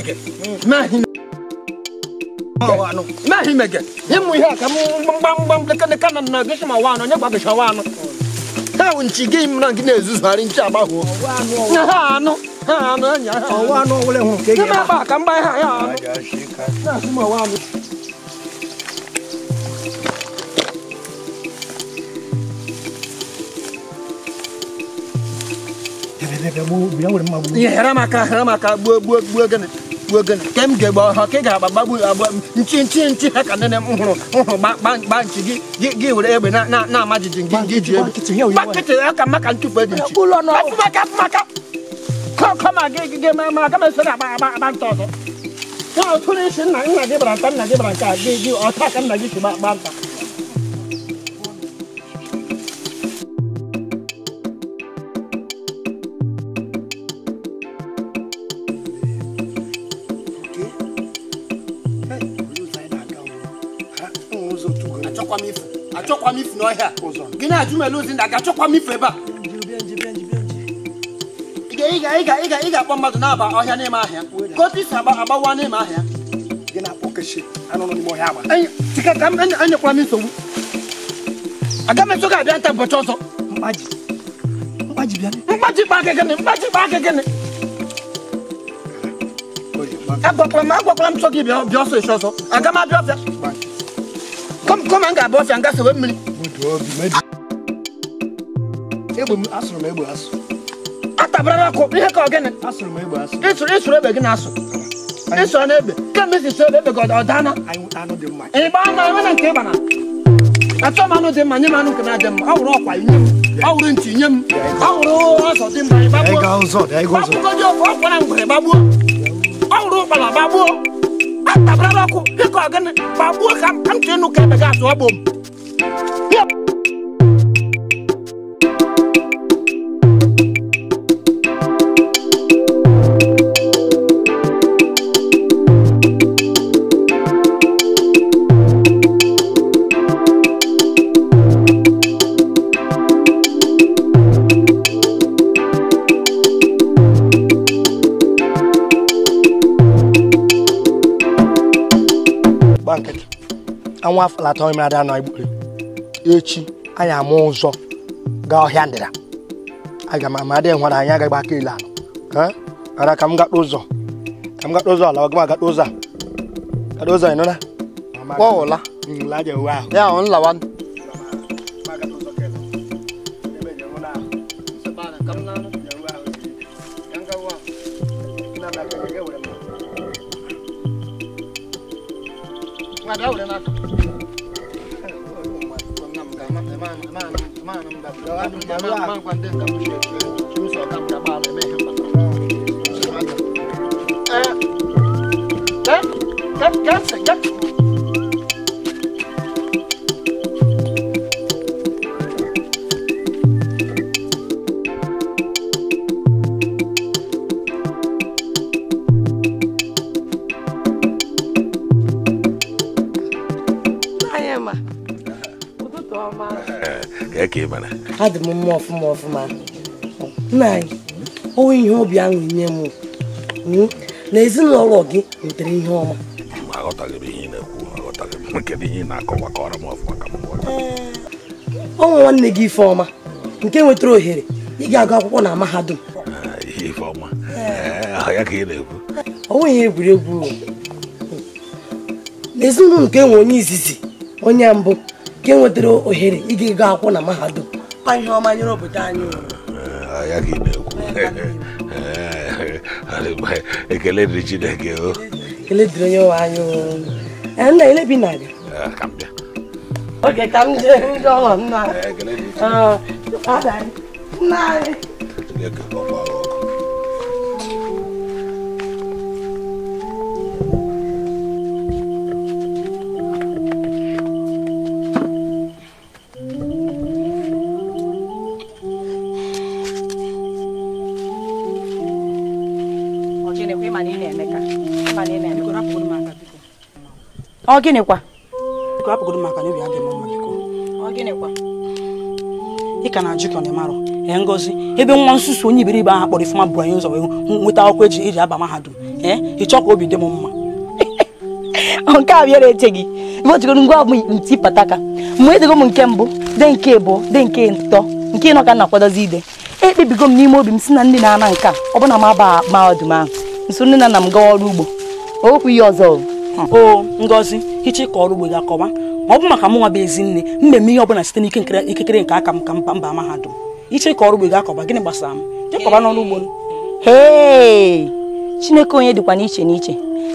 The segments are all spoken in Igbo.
himege ma himege wano na himege himu ya kamu mbambam lekane kana na gishima wano nyagwa gisha wano tawo nchige imna ngine zuzu hari nchi bu bilang udah mau bu. Iya hera maka hera maka bu bu bu gan bu gan kem ge ba ha ke ga ba bu ba nchi nchi nchi ha kan ne uhuru uhuru ba ba ba nchi gi gi gi udah ebe na na na ma jijin gi gi ji ebe. Ba kiti ya kan maka ntu pe di nchi. Ulo no. Ba maka maka. Ko ko ma ge ge ma ma ka me sura ba ba ba nto to. Wa o tuni shin na ina ge bra tan na ge bra ka ge gi o ta kan na gi ba ba nta. kini ajuma elozi na ga-achọkwa m ife ebe a ị akpọ mmadụ na-aba ọhịa n'ime ahịa ka isi agbawa n'ime ahịa anyekwala m nsogbu aga m eso gị abịa nta ụbọchị ọzọ mkpaji mkpaji bịa mkpaji kpa aka gịnị mkpaji kpa aka gịnị agwakwala m agwakwala m sọ bịa bịa ọsọ esi ọsọ aga m abịa ọfịa kọm m ga-abịa ọfịa m gasewe mmiri egbe m asụrụ m egbe asụ atabara n'akụ ihe ka ọgịnị asụrụ m egbe asụ ịsụrụ ịsụrụ egbe gị asụ ịsụrụ n'egbe kemgbe isi sụọ egbe gị ọ dana ịgba ana enwe na nke ịba na achọ m anụ dị mma nye m anụ nke na-adị mma ọ wụrụ ọkwa nye m ọ wụrụ ntị nye m ọ wụrụ ọzọ dị mma ịgbagbuo gbagbugo dị ofe ọkwa na ngwere gbagbuo ọ wụrụ ụkpala gbagbuo atabara n'ọkụ dịka ọgịnị gbagbuo ka ntị nụ ka ebe gị asụ ọgbụ m ọnwa afọlata onye mmadụ anọ igbo echi anyị ama ụzọ gaa ọhịa ndịda aga m ama adịghị nwara anyị agaghị aka ile ala ara ka m gakpa ụzọ ka m gakpa ụzọ ala ọgama gakpa ụzọ a gakpa ụzọ ịnụla ọ ụla ya ọ nlawa ọfụma ọfụma ọfụma nna anyị ọwụ ihe obi aṅụ nye m hmm? na ezinụlọ gị nwetara ihe ọma ọnwa nwanne gị Ifeọma nke nwetara ohere ị ga-agụ akwụkwọ na mahadum onwe ihe egwuregwu na ezinụlọ nke nwe onye izizi onye mbụ nke nwetara ohere ị ga-agụ akwụkwọ na mahadum aka ihe ọma nyere obodo anyị agaghị na-ekwu ekele dịrị Chineke o ekele dịrị onye nwe anyị o nna ele bi na-abịa oge ka m jee ndị ọghọ nna anyị nna anyị ọ gịnị kwa. ị ka na-ajụ ka ọ na-emarụ ee ngozi ebe nwa nsusu onye iberibe ahụ kpọrọ ifuma bụ anyị ụzọ wee nweta akwụkwọ eji eji aba mahadum ee ịchọ ka obi dị m mma nke a bịara eche gị ebe o jigoro ngwa bụ nti pataka mgbe edego m nke mbụ de nke ịbụ de nke ntọ nke ịnọ ka na akwadozi ide ekpebigo m n'ime obi m si na ndị na-ana nke a ọ na m aba mahadum ahụ nso nne na nna m gawa ọrụ ugbo okwu ihe ọzọ o ngozi hicha ịkọ ọrụ ugbo gị akọwa ma ọ bụ maka m bụ ezi nne mgbe m ihe ọbụla site n'ike ikikere nke aka m ka mba mahadum iche ịkọ ọrụ ugbo gị akọwa gịnị gbasara m jekọba n'ọrụ ugbo chineke onye dịkwa n'iche n'iche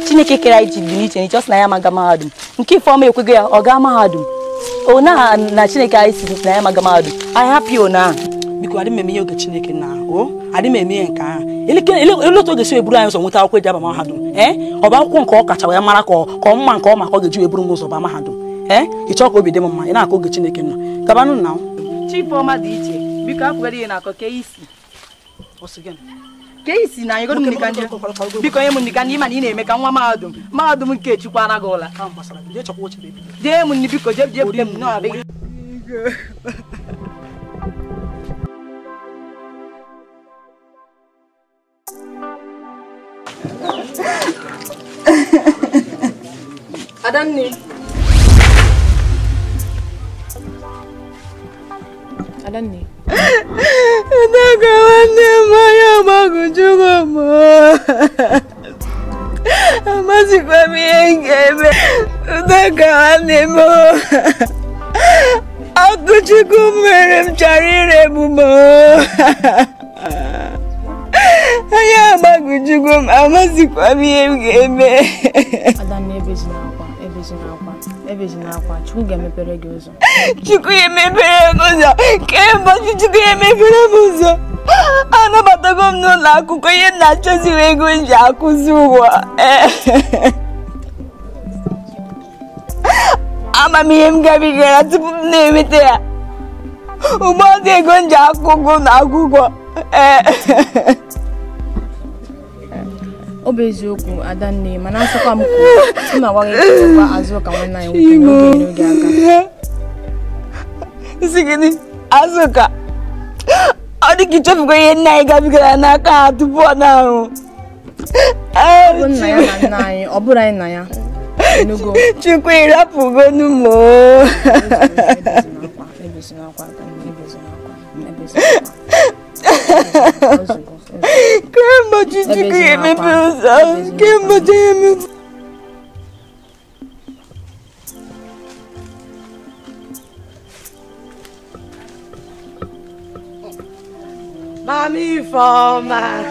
chineke kere anyị ji dị n'iche n'iche ọ sị na ya maga mahadum nke ifeọma ekwego ya ọ gaa mahadum ona na chineke anyị si na ya maga mahadum anyị hapụ ya ona biko adị m eme ihe oge chineke na o adị m eme ihe nke ahụ ele otu oge si eburu anyị ụzọ nweta akwụkwọ eji aba mahadum ee ọ bụ akwụkwọ nke ọ kacha wee mara ka ọ mma nke ọma ka ọ ga-eji eburu m ụzọ mahadum ee ị chọọ ka obi dị m mma ị na-akọ oge chineke na gabanụ na dị iche biko ihe na-akọ ka isi isi na anyịgo biko nye m ndị ịma na ị na-eme ka nwa mahadum mahadum nke ara gị ụla jee m biko jee jee Adam ne? Nataka wanne maya makuchukwa mo. Amazi kwa miengeme. Nataka wanne mo. Akuchukumerem charire mo. onye agbagojugo m amazikwa m ihe m ga-eme chukwu ga-emepere gị ụzọ chukwu ya emepere m ụzọ kee chukwu ya emepere m ụzọ anabatago m n'ụlọ akwụkwọ ihe na-achọzighị ego ji akụzi ụwa ama m ihe m gabigara tupu m na-enweta ya Ugbo dị ego m ji akwụkwọ na akwụkwọ ee ọ bụ eziokwu adanne mana asịkwa m kwuo na agwaghị ekekwa azụ ka nwanne anyị nwoke n'oge n'oge aka. isi gị gịnị azụka ọ dị ka ịchọfugo ihe nna anyị gabigara n'aka ha tupu ọ na-ahụ ọ bụ nna ya na nna anyị ọ bụrụ anyị na ya chukwu ịrapụgonu m o Kemgbe ojiji ka emepe ụzọ ahụ, kemgbe oji emepe Mami Ifeọma.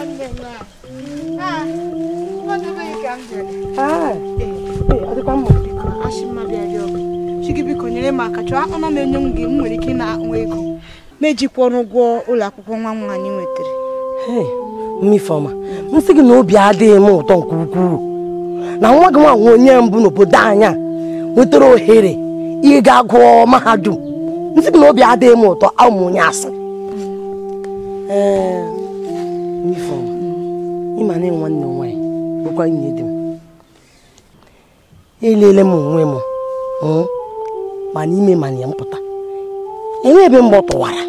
biko nyere m aka chọọ akpana m enye m gị m nwere ike na akpụ ego ma ejikwọrọ ụgwọ ụlọ akwụkwọ nwa nwaanyị nwetara Mmifeọma m sị gị na obi adịghị m ụtọ nke ukwuu na nwa gị nwa onye mbụ n'obodo anya nwetara ohere ịga gụọ mahadum m sị gị na obi adịghị m ụtọ ụmụ onye asị ee Mmifeọma ịma na nwanne m nwaanyị bụkwa nwunye dị m elele m onwe m hmm, ma n'ime ma na mpụta enwe ebe mgbe ọ tụwara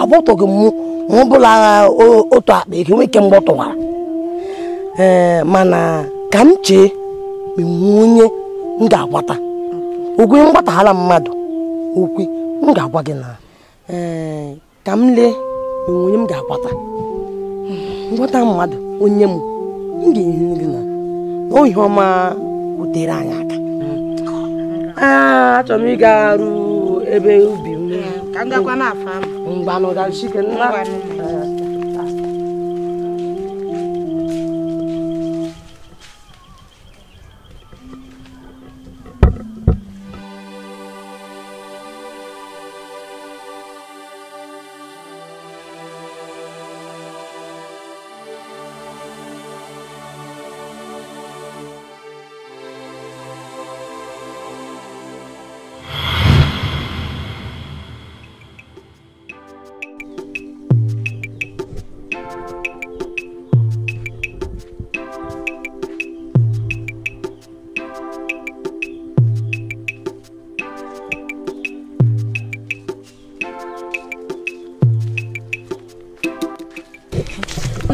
agbọtọghị m ọ agha otu akpa eke nwoke mgbe ọ tụwara mana ka m chee ma onye m ga-agbata okwe mgbataghala mmadụ okwe m ga-agwa gị na ka m lee enwe onye m ga-agbata ngwata mmadụ onye m m ga-ehi gị na ohi ọma butere anyị aka achọrọ m ịga arụ ebe ubi ka m na afọ ahụ mgbanụ ga-achike nna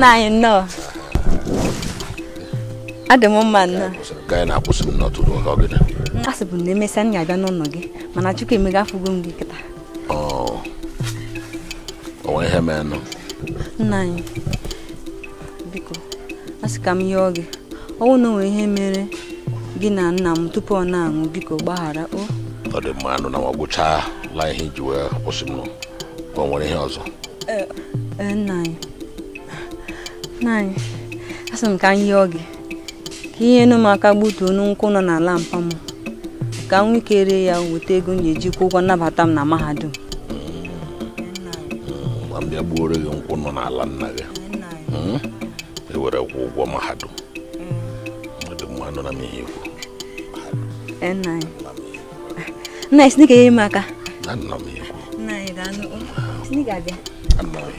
na anyị nnọọ adị m mma nnọọ a sị bụ na emesịa m ga abịa n'ụlọ gị mana chukwu emega afụgo m gị kịta nna anyị biko a sị ka m yọọ gị ọnwụ na onwe ihe mere gị na nna m tupu ọ na anwụ biko gbaghara o ọ dị mma anụ na ma gwụchala ihe iji wee kwụsị m ọ nwere ihe ọzọ e, nna anyị naanị asị m ka m yọọ gị ka ihe nu m aka gbutuo nọ n'ala mpa m ka m ya weta ego m eji kwụ ụgwọ nnabata m na mahadum a gbuoro gị nkwụ nọ n'ala nna gị hmm? e ụgwọ mahadum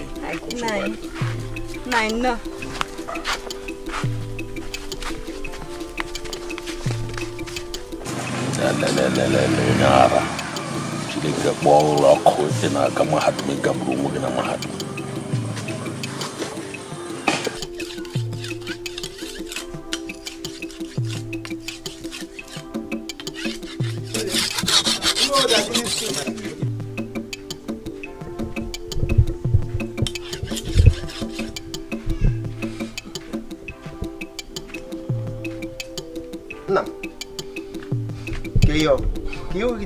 mma nein. Lalalalalala, shi daga ɓawon rock ko ina ga mahatmin gamru mu gina mahatmin.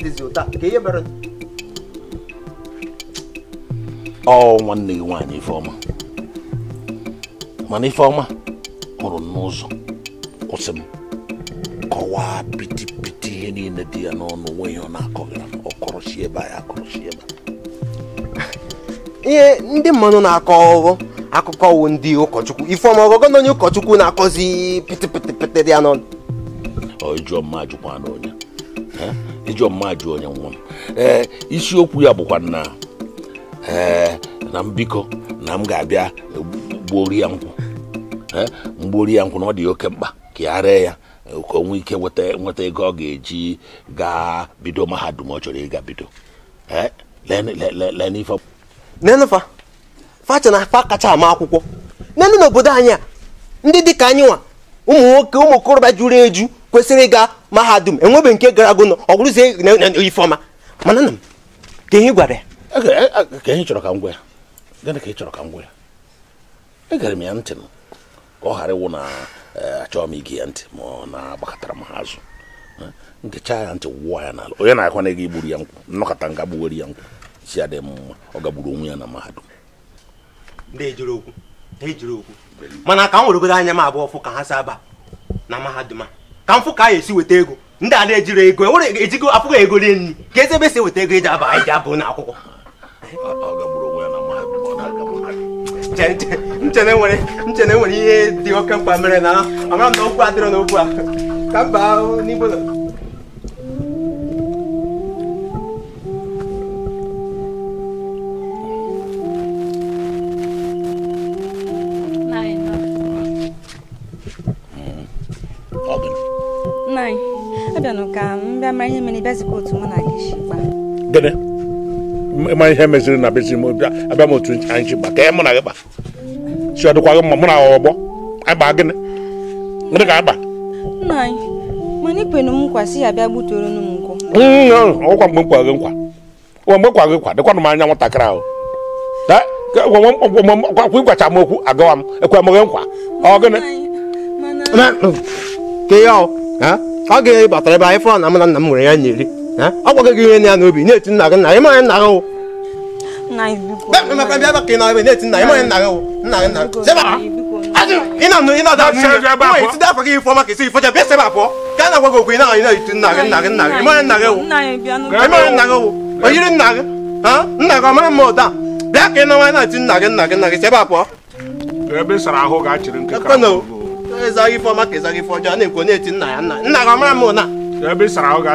dịzi ụta ihe mere ọ nwanne gị nwaanyị ifeọma mana ifeọma hụrụ n'ụzọ kwụsị m kọwaa pitipiti ihe niile dị ya n'ọnụ onwe ya ọ na-akọghara ọkọrọchi ebe a ya akọrọchi ebe ihe ndị mmadụ na-akọ ọghọ akụkọ wụ ndị ụkọchukwu ifeọma ọgọgọ na onye ụkọchukwu na-akọzi pitipiti dị ya n'ọnụ ọ jụọ mma ajụkwa n'onye ijọmma jụ onye nwa m ee eh, isiokwu ya bụkwa na ee eh, na mbikọ na m ga-abịa gbuori ya nkwụ eh, mgbuori ya nkwụ na ọ dị oke mkpa ka ya ree ya ka o nwee ike nweta ego ọ ga-eji gaa bido mahadum ọ chọrọ ịga bido facha na fa kacha ama akwụkwọ n'elu n'obodo anyị a ndị dịka anyị nwa ụmụ nwoke ụmụ okorobịa juru eju kwesịrị ịga mahadum enwebe nke gara agụnọ ọ bụrụzie ifeọma mana na m ka ihe gwara ya e e, e, ka ihe chọrọ ka m ya gịnị ka ị chọrọ ka m gwa ya egere m ya ntị m ka ọ ghara ịwụ na achọghị m ige ya ntị ma ọ na-agbakọtara m ha azụ hm? nkecha ya ntị wụwa ya n'ala onye na-akwa na ego igburu ya nkwụ nnọkọta nga gbuwere ya nkwụ si adị m mma ọ gagburu onwe ya na mahadum na-ejere okwu na-ejere mana ka m weregodo anya m abụọ fụ ka ha si aba na mahadum a ka m fụ ka a esi weta ego ndị a na ego enwere ejigo afụghị ego rie nri ka eze ebe e si weta ego eji aba anyị e abụ n'akwụkwọ nchena ihe dị oke na amara m na okwu adịrọ n'okwu a ka mba n'igbo nna anyị abịanụ ka m mara ihe mere bịazikwa otu mụ na gị si kpaa gịnị ịma ihe meziri na m abịa m otu anyị ka ya mụ na gị kpa si ọ dịkwa gị mma mụ na ọgbọ anyị gịnị gịnị ka agba mana ikwenu m nkwa si ya bịa gbutere m nkwụ ọkwa mgbe nkwa gị nkwa mgbe nkwa gị nkwa dịkwanụ m anya nwatakịrị ahụ ịgwacha m okwu agawa m ekwe m gị nkwa ọ gịnị ka ọ ga-ere batara ebe anyị fụrụ na mụ na nna m nwere ya na-eri ọ gwago gị ihe na ya n'obi na-eti nna gị nna gị manya nna gị bẹ́ẹ̀ bẹ́ẹ̀ bá kìnnà ẹ̀mí ní ètí nà ẹ̀mọ́ ẹ̀ nàgẹ̀ o nàgẹ̀ nà sẹ́bà iná nù iná dáa sẹ́yìn wọ́n èyí ti dáa ịzaghị ife ọma ka ife ọjọọ na-ekwu na-eti nna ya nna nna gị ọmara m ụna ebe sara ahụ nna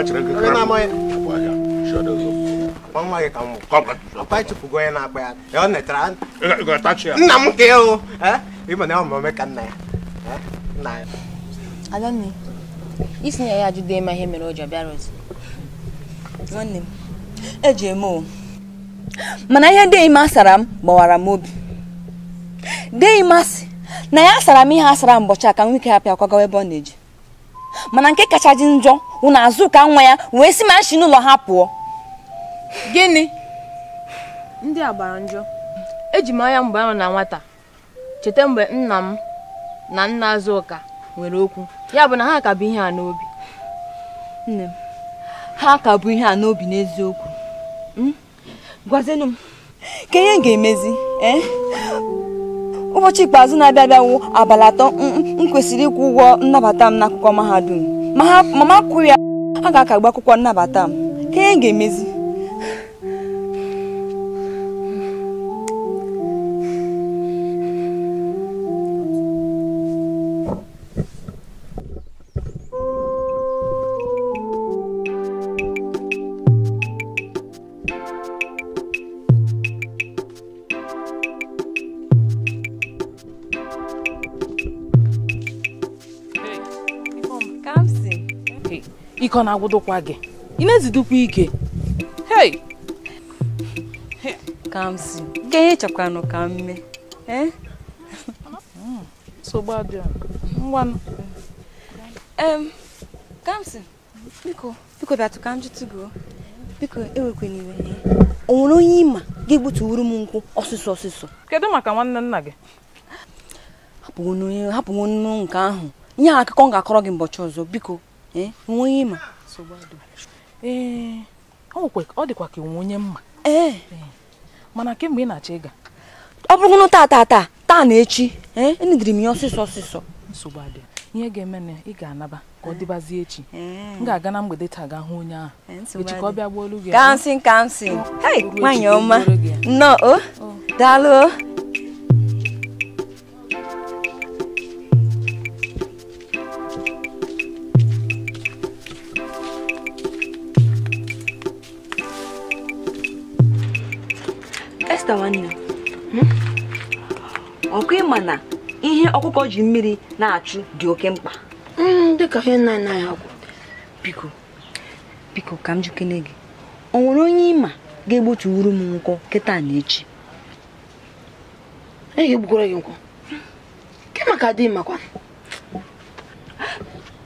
ya adanne na ya ajụdo ịma ihe mere ozi nwanne m eji eme o mana ihe deghị m asara m gbawara m obi deghị asị na ya sara m ihe asara mbọchị a ka nwike ya pịa kwagawa ebe ọ na-eji mana nke kacha dị njọ ụna-azụ ụka nwa ya wee si ma nshi n'ụlọ ha pụọ gịnị ndị agbara gbara njọ eji m anya mgbe ahụ na nwata cheta mgbe nna m na nna ụka nwere okwu ya bụ na ha ka bụ ihe a n'obi ha ka bụ ihe a n'obi n'eziokwu hmm? gwazienụ m ka ihe ga-emezi eh? ụbọchị ikpeazụ na-abịa abịawo abalị atọ m kwesịrị ịkwụ ụgwọ nnabata m n'akwụkwọ mahadum ma ma akwụ ya ha ga-akagbu akwụkwọ nnabata m ka ihe ga-emezi ike ọ na agwụdokwa gị ị na-ezidukwa ike hey ka si ihe chọkwanụ ka m mee kamsi eh? biko biko m biko e iwe o nwere onye ịma ga-egbutuwuru m nkwụ ọsịsọ ọsịsọ kedu maka nwanne nna gị hapụ hapụ nnu nke ahụ ihe akụkọ m ga-akọrọ gị mbọchị ọzọ biko nwunye ịma ee ọ dịkwa ka onwe onye mma ee eh? eh, mana kemgbe ị na-achọ ịga ọ bụrụ taa taa taa taa na echi ee eh? enidiri m ya ọsịsọ ọsịsọ nsogbu adịghị ihe ga-eme na ị ga-anaba ka ọ dịbazie echi m ga-aga na mgbede taa ga hụ onye ahụ echi ka ọ bịa gbuo olu gị kansịn kansịn hei nwaanyị ọma nnọọ o oh, oh. daalụ oh. Esta nwanne hmm? ọkụ ịma na ihe ọkụkọ ji mmiri na-achụ dị oke mkpa hmm, dịka ihe nna nna ya kwụ biko biko ka m jikene gị o nwere onye ịma ga-egbotuwuru m nkwọ kịta na echi e ga-egbukwara gị nkwọ ke maka dị makwa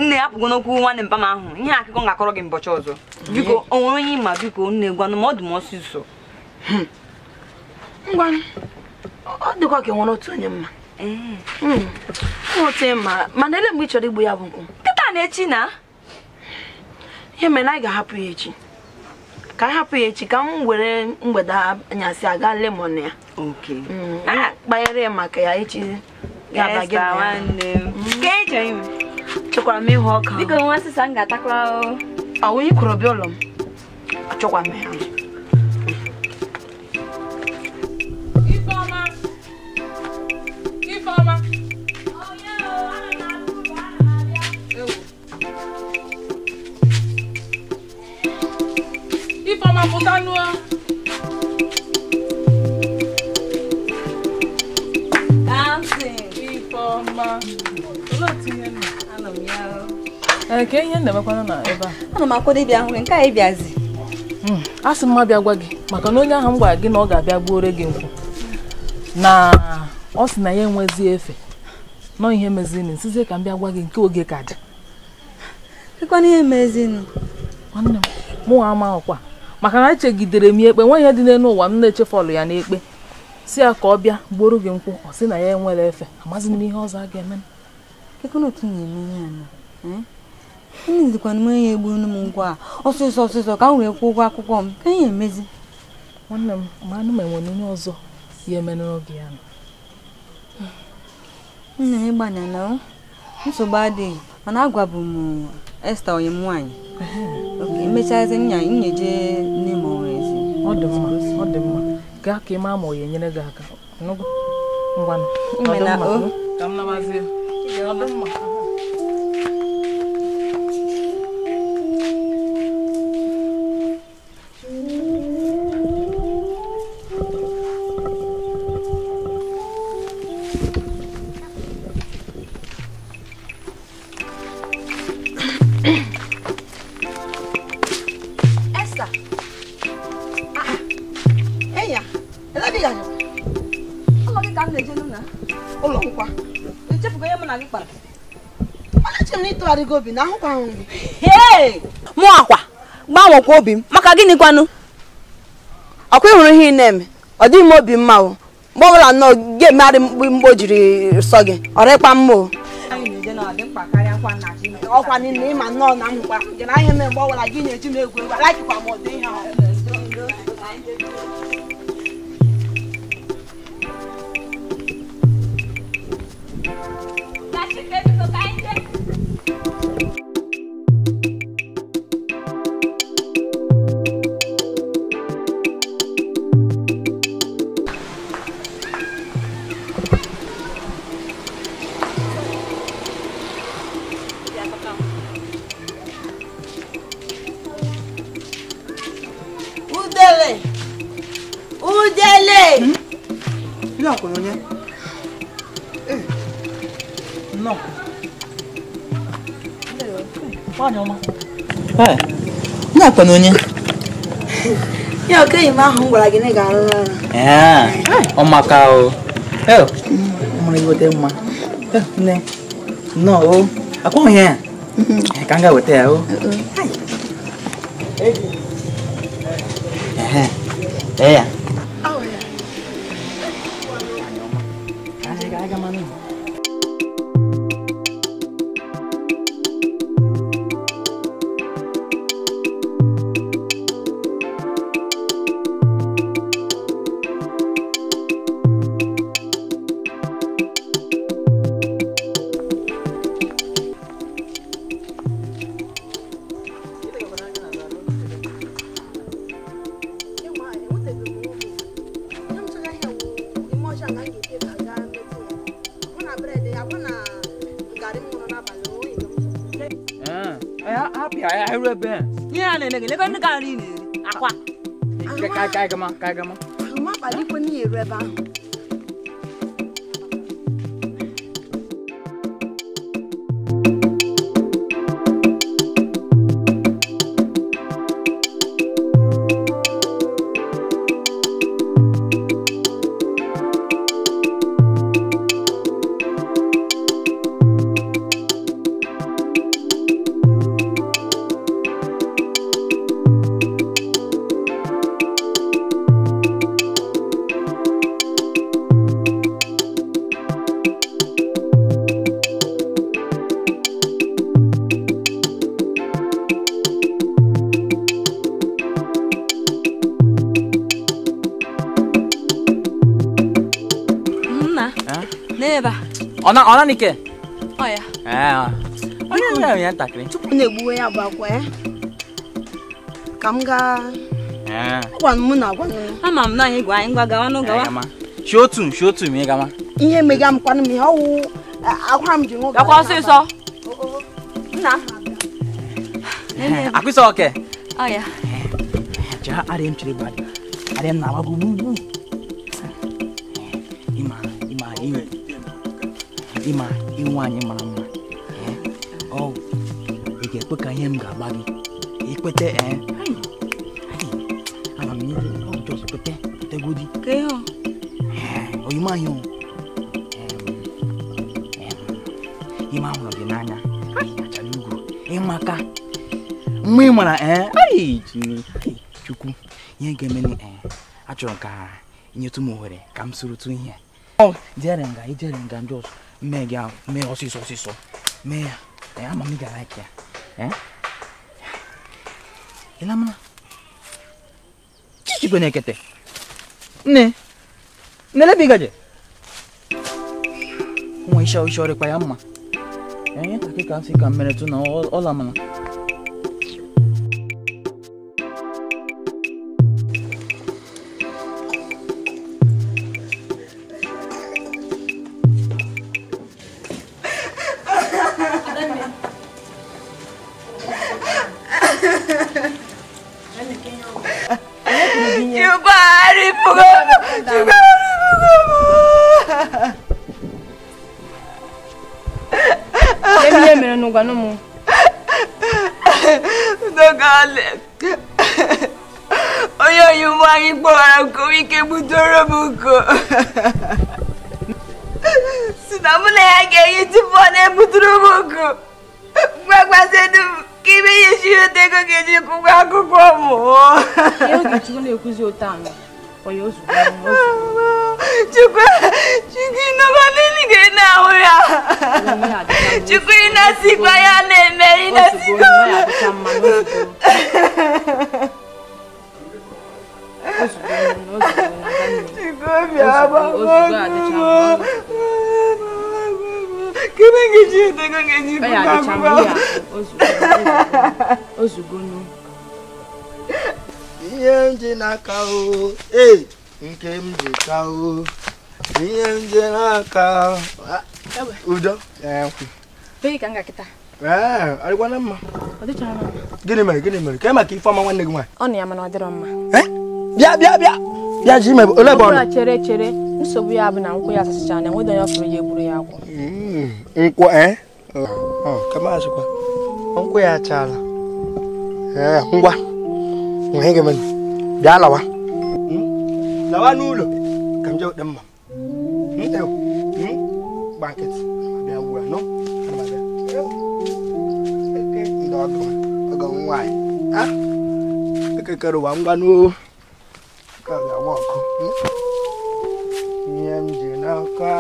nne ya pụgo n'okwu nwanne mpa m ahụ ihe akụkọ ga-akọrọ gị mbọchị ọzọ biko o nwere onye ịma biko nne gwanụ ọ ọdụ m ọsịsọ hmm. ngwa ọ dịkwa ka enwere otu onye mma hmm. otu mana ele mgbe ị chọrọ igbu ya bụ nkwụ kịta na echi na ihe mere na anyị ga-ahapụ ya echi ka anyị hapụ ya echi ka m were mgbede anyasị aga lemon ya hmm. kpanyere ya maka ya echi hmm. e chekwara m ịhụ ọka ụlọ m achọkwa m ya ma pụta nuo ee ka ihe ndebekwana na ebe a ana m akwado ịbịa hụ nke a ị bịazi hmm, a sị mma bịa gwa gị maka na onye ahụ m gwara gị na ọ ga-abịa gbuore gị nkwụ na ọ sị na ya enwezi efe nọ ihe mezini nsizie ka m bịa gwa gị nke oge ka dị ihe mezini nwanne m mụ amaghịkwa maka na echegidere m ya ekpe nwa ihe dị n'elu ụwa m na-echefọlụ ya n'ekpe si ya ka ọ bịa gboro gị nkwụ ọ sị na ya enwere efe amaghịzi m ihe ọzọ a ga-eme m onye egburu m ngwa a ọsọsọ ọsọsọ ka m wee kwụọ ụgwọ akwụkwọ m ka ihe emezi nwanne m ma anụ ma enwere onye ọzọ ya eme n'oge ya nna ịgbanya na nsogbu adịghị mana agwabu m ụwa Esta onye m nwaanyị emechaazi nya nyeje nne m ezi ọ dị mma ọ dị mma gaa ka ị ma ọ ga-enyere gị aka ngwanụ ọ dị mma ka m nabazie ọ dị mma gbanwego obi na ahụkwa nri mụ akwa gbanwekwa obi m maka gịnị kwanụ ọkwa ịhụrụ ihe ị na-eme ọ dịghị m obi mma o mgbe ọ nnọọ ga mgbe o sọ gị ọrịkpa mma o ọkwa na na-eji Thank you. 哎，那管侬呢？要跟你妈哄过来给你干了。哎，我妈搞，哎，我们有点嘛，哎，那，那哦，啊，光呀，刚刚我带哦，哎，哎呀。gaa aga m ka aga Lala nike. Oh ya. Ah. Oh, eh. Onye ya onye ntakịrị. Tupu na-egbuwe ya bụ akwa ya. Ka m gaa. Eh. Ah. Gwanụ mụ na gwanụ. Ama m na anyị gwa anyị ngwa gawa n'ụgwa wa. Shi otu shi otu ma ị gama. Ihe mega m kwanụ m ihe ọwụ eh, akwa m ji nwoke. Gakwa ọsịsọ. Nna. Eh, eh, oh ya. Ja arịa m chiri gbadị. Arịa m ịma inwe anyị mara mma ọ eh? oh, ga-ekwe ka ihe m ga-agba gị ikwete amamikpetegodi oyimahị ime ahụrụ gị n'anya achara ugwu ịmaka mgbe ị mara ee eh? chukwu ihe ga-emeni eh, achọrọ ka nyetụ m ohere ka m sorotu ihe oh, jere nga ijere nga ndị ọzọ megaa mee ɔsisɔ ɔsisɔ mee ɛyɛ ama mi gara kia ɛn ilamuna chichi kwenye kete ne nele bigaje mwa isha ushauri kwa yamma ɛn kakika sika mmeretu na ɔlamuna. dànù ọ̀yọ́ oṣù kan ní oṣù. chukwu chukwu inọba n'eluigwe na-ahụ ya chukwu ịnasikwa ya na-eme ịnasikwa chukwu obi agbagbo kene ngeji edego ngeji bụ agbụgbọ ozugbo ndị na n'aka nke m ji ka ihe ndị na-aka udo adịkwana mma gịnị mere gịnị mere ka maka ifeọma nwanne gị nwaanyị ọ na ya mana ọ dịrọ mma bịa bịa bịa bịa ji mebe ole bụ ọnụ chere chere nsogbu ya bụ na nkwụ ya na enweghị onye ọfụrụ ya egburu ya akwụ hmm, nkwụ e? nkwụ ya achala ngwa ihe gị mere da lawa hmm? lawa nulo kam jaw dem mam hmm, ew hmm? banket be awura no ana ba ndo do ga nwai ha ke karo wa ngwa no ka ga ko nyem ji na ka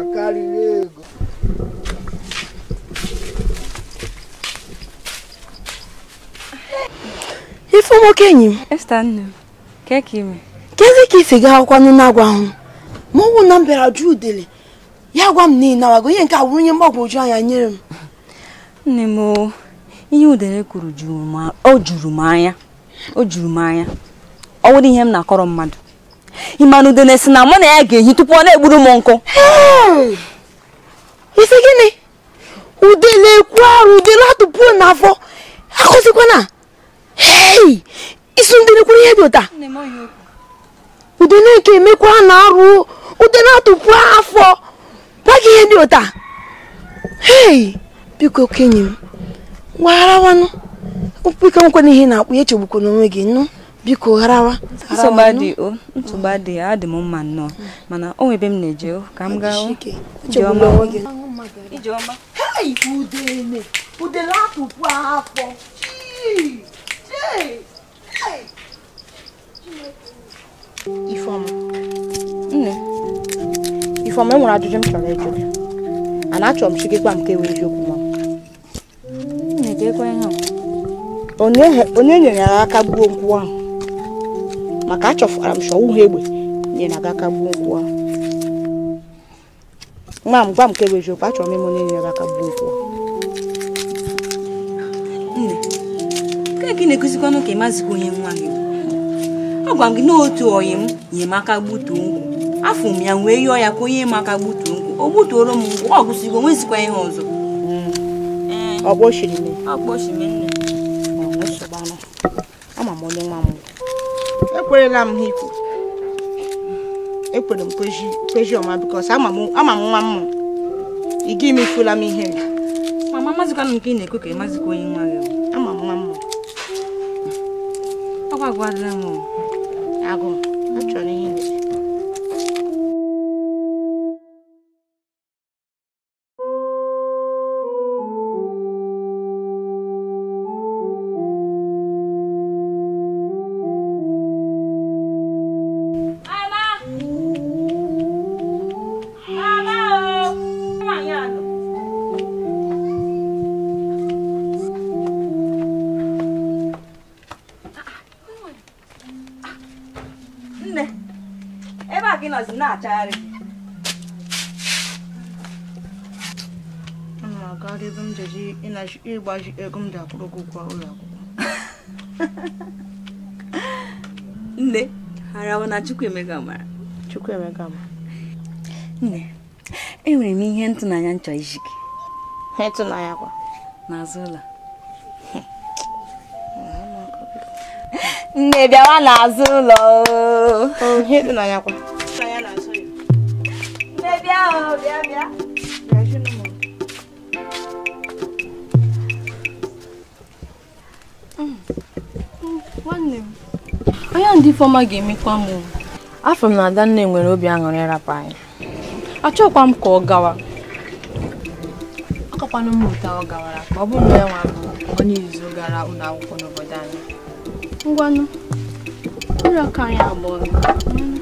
akari nwoke enyi m kezi ka isi gaa akwụkwọ nụ na-agwa ahụ ma ọ wụ na m bịara jụ udele ya gwa m na ị nawago ihe nke awụrụ ihe mgbagwoju anya nyere m nne m ihe udele kwuru o juru m anya o juru m anya ọ wụrụ ihe m na-akọrọ mmadụ ị ma na udele si na mụ na ya ga-ehi tupu ọ na-egburu m nkụ isi gịnị udele ekwu arụ udele atụpụ n'afọ akụzikwana hei isu ndị nekwuru ihe dị ụta udeneke emekwa na-arụ udene atụpụ afọ gbaghị ihe dị ụta hei biko okenye m gwagharawanụ biko nkwena ihe na-akpụ ya echegbukwa n'onwe gị nụ biko gharawa nsogbu adịghị adị m mma nnọọ hmm. mana o nwebe m na-eje ka m gaa ijeọma udene udene atụpụ afọ Ifeọma nne Ifeọma e nwere ajụjụ m chọrọ ịjụ gị ana achọrọ m chike gwa m ka ewe eziokwu ma e onye nyere ya aka gbuo nkwụ ahụ maka achọfara m chọọ ha egbe nyere aga aka gbuo nkwụ ahụ nwa m gwa m ka e ewe eziokwu achọrọ m ịma onye nyere aka gbuo nkwụ ahụ nke gị na-ekuzikwanụ ka ị ịmazikwa onye nwa gị ọ m gị n'otu oyi m nye nyemaka gbutuo nkwụ afọ m ya wee yọọ ya ka onye maka gbutuo nkwụ o gbutuoro m mgbe ọ gụsigo nwezikwa ihe ọzọ ekwerela m ha ikwu ekwere m kwezi ọma bikos ama m nwa m ị ga ifula m ihe mama mazikwanụ nke ị na-ekwe ka ị ịmazikwa onye nwa gị aguardamos agua ịgbaji ego m ji akwụrụ gị ụgwọ ụlọ akwụkwọ nne arawa na Chukwuemeka mara Chukwuemeka mara nne enwere m ihe ntụnanya nchọ iji gị ịtụnanya kwa n'azụ ụlọ nne bịawa n'azụ ụlọ oh, ịtụnanya kwa nne bịa bịa bịa nwanne m onye ndị Ifeọma ga-emekwa m afọ m na Adanne nwere obi aṅụrị ịrapụ anyị achọkwa m ka ọ gawa akọkwana m ụta ọ gawara ma ọ bụrụ na ya e nwa bụ onye izu gara ụlọ akwụkwọ n'obodo anyị ngwanụ ụlọ aka anyị abụọ hmm,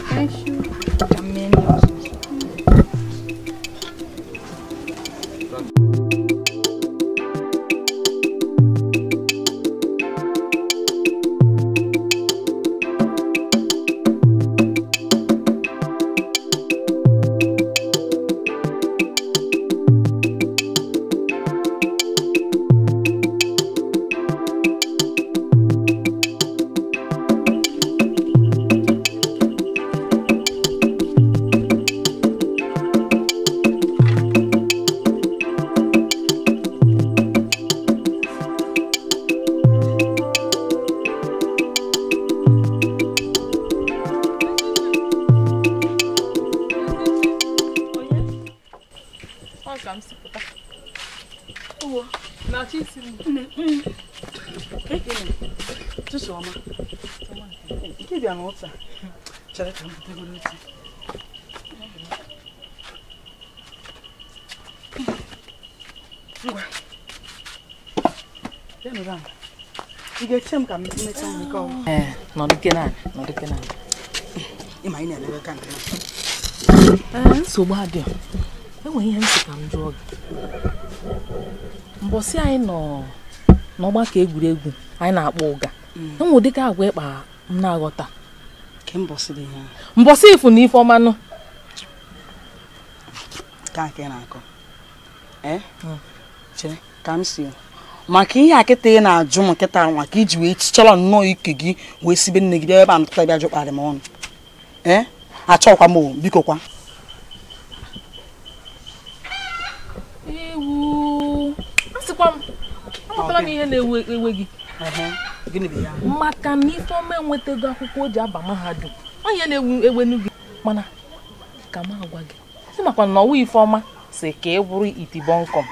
Eh, nke eh, nsogbu adịọ. Enwere ihe m ka m jụọ gị. Mbọsị anyị nọ n'ọgbakọ egwuregwu anyị na-akpọ ụga. Mm. Enwe ụdịka agwa ịkpa m na-aghọta. ifu na ife maka ihe a kịta ị na-ajụ m kịta maka iji wee chichala nnọọ ike gị wee sibe nne gị bịa ebe a ntụta bịa jụkparị m ọnụ ee achọkwa m biko kwa maka na Ifeọma enwetago akwụkwọ o ji aba mahadum onye na-ewu ewenu gị mana ka m agwa gị si makwa na ọwa Ifeọma si ka ị bụrụ itibọnkọm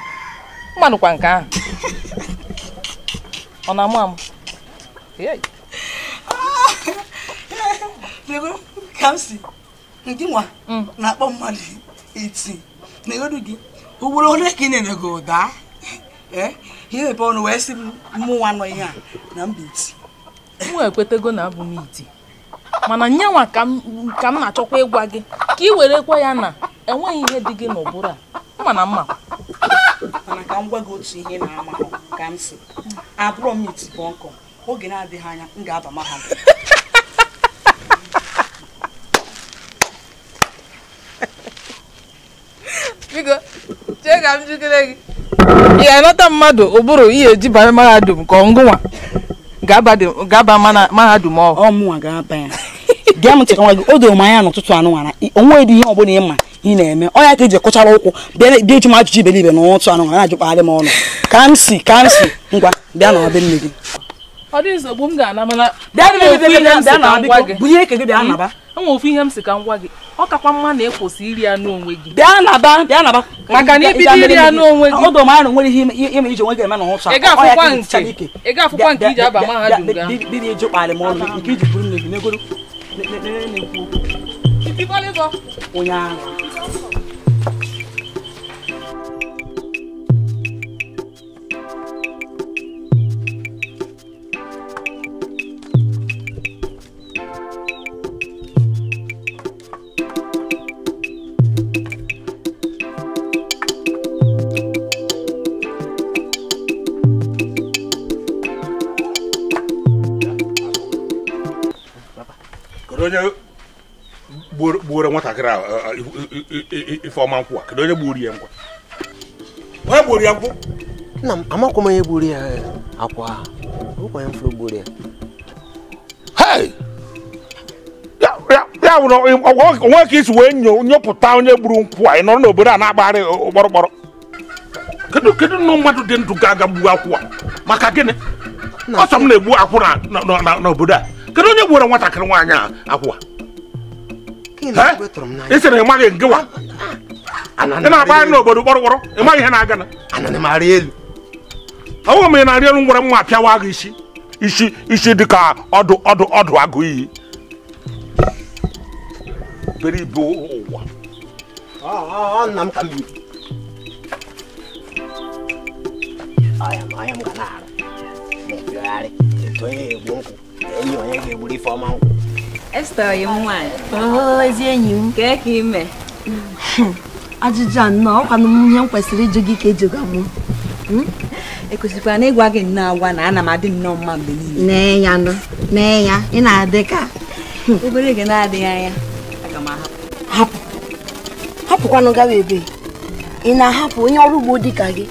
kwa nke ahụ ọ na-amụ amụ ka m si ndị nwa mm. na-akpọ mmadụ iti na egodu gị ugboro ole ka ị na-enye gị ụda ihe mepe ọnụ wee sị mụnwa nọ ihe a na mba iti m ekwetego na abụ m iti mana nye nwa ka m na-achọkwa ịgwa gị ka ị werekwa ya na enweghị ihe dị gị n'ụbụrụ a mana mma. m gwa otu ihe na-amahụ ka m si abụrụ m itibụ nkụ oge na-adịghị anya m ga-aba mahadum biko chee ka m jikere gị ị ga-anata mmadụ ụbụrụ ihe eji banye mahadum ka ọngụnwa ga-aba mahadum ọhụụ ọ ga-aba ya gị o doro ihe ọ bụla ị na-eme ọnya ka eji kụchara ụkwụ bịa eji m ajụjụ iberibe na ụtụ anụ na ajụkpagharị m ọnụ ka m si ka m si ngwa bịa na nne gị ofu ihe m si ka m gị ọ kakwa mma na ịkwụsị iri anụ onwe gị bịa naba bịa naba maka na ibido iri gị ọdọ nwere ihe ime iji onwe gị eme na ụcha ị ga-afụkwa nke iji aba mahadum gị m ọnụ nke iji buru nne gị n'egoro onye gbuoro nwatakịrị a ifeọma nkwụ a kedu onye gbuoro ya nkwụ onye gbuoro ya nkwụ nna m amakwa m onye gburu ya e, akwa ụkwanye mfụrụ gburu ya ya nwere onwe ka isi wee nyopụta onye gburu nkwụ a ị nọrọ n'obodo a na-agbagharị ụgbọrọgbọrọ kedu kedu nnụ mmadụ dị ndụ ga-aga gbuo akwụ a maka gịnị ọsọ m na-egbu akwụ n'obodo a kedu onye gburu nwatakịrị nwaanyị a akwụwa ị sịrị ịmaghị ngịwa ị ah, ah, na-akpagharị n'obodo kpọrọkpọrọ ịmaghị ihe na-aga na ọnwụ ị na-arị elu ngwere nwa apịawa agụ isi isi isi dịka ọdụ ọdụ ọdụ agụ iyi ah, I am, enyi onye ga-egburu ifeọma nkwụ Esther yi m nwaanyị ezi enyi m kee ka ime ajụjụ a nnọọ ọkwanụ m ihe m kwesịrị ịjụ gị ka ejiga m hmm? ekwesịkwara na ịgwa gị nnọọ agwa na ana m adị nnọọ mma mgbe niile ya nụ nee ya ị na-adị ka obere gị na-adịghị anya Hapụ, m ahapụ hapụkwanụ gawa ebe ị na-ahapụ onye ọrụ ugbo dị ka gị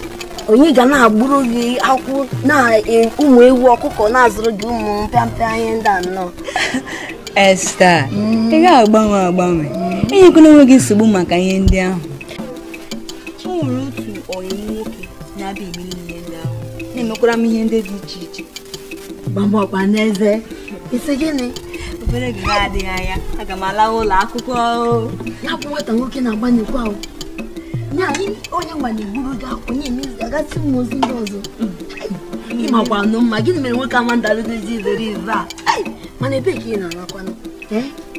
onye ga na-agburu gị akwụ na e, ụmụ ewu ọkụkọ na-azụrụ gị ụmụ mpịampịa ihe ndị anọ Esta ị ga-agbanwe agbanwe enyekwana onwe gị nsogbu maka ihe ndị ahụ o nwere otu ọyị nwoke na-abịa eme ihe ndị ahụ na-emekwara m ihe ndị dị iche iche gbamọkpa n'eze isi gịnị obere gị adịghị anya aga m ala ụlọ akwụkwọ ya bụ nwata nwoke na-agba n'ekwu ahụ onye nwa na-egburu gị onye emezi ga-agasị ụmụozi ndị ọzọ ịmakwa nụ mma gịnị mere nwoke ama ndalụdozi izere ize a mana ebee ka ị na-arakwanụ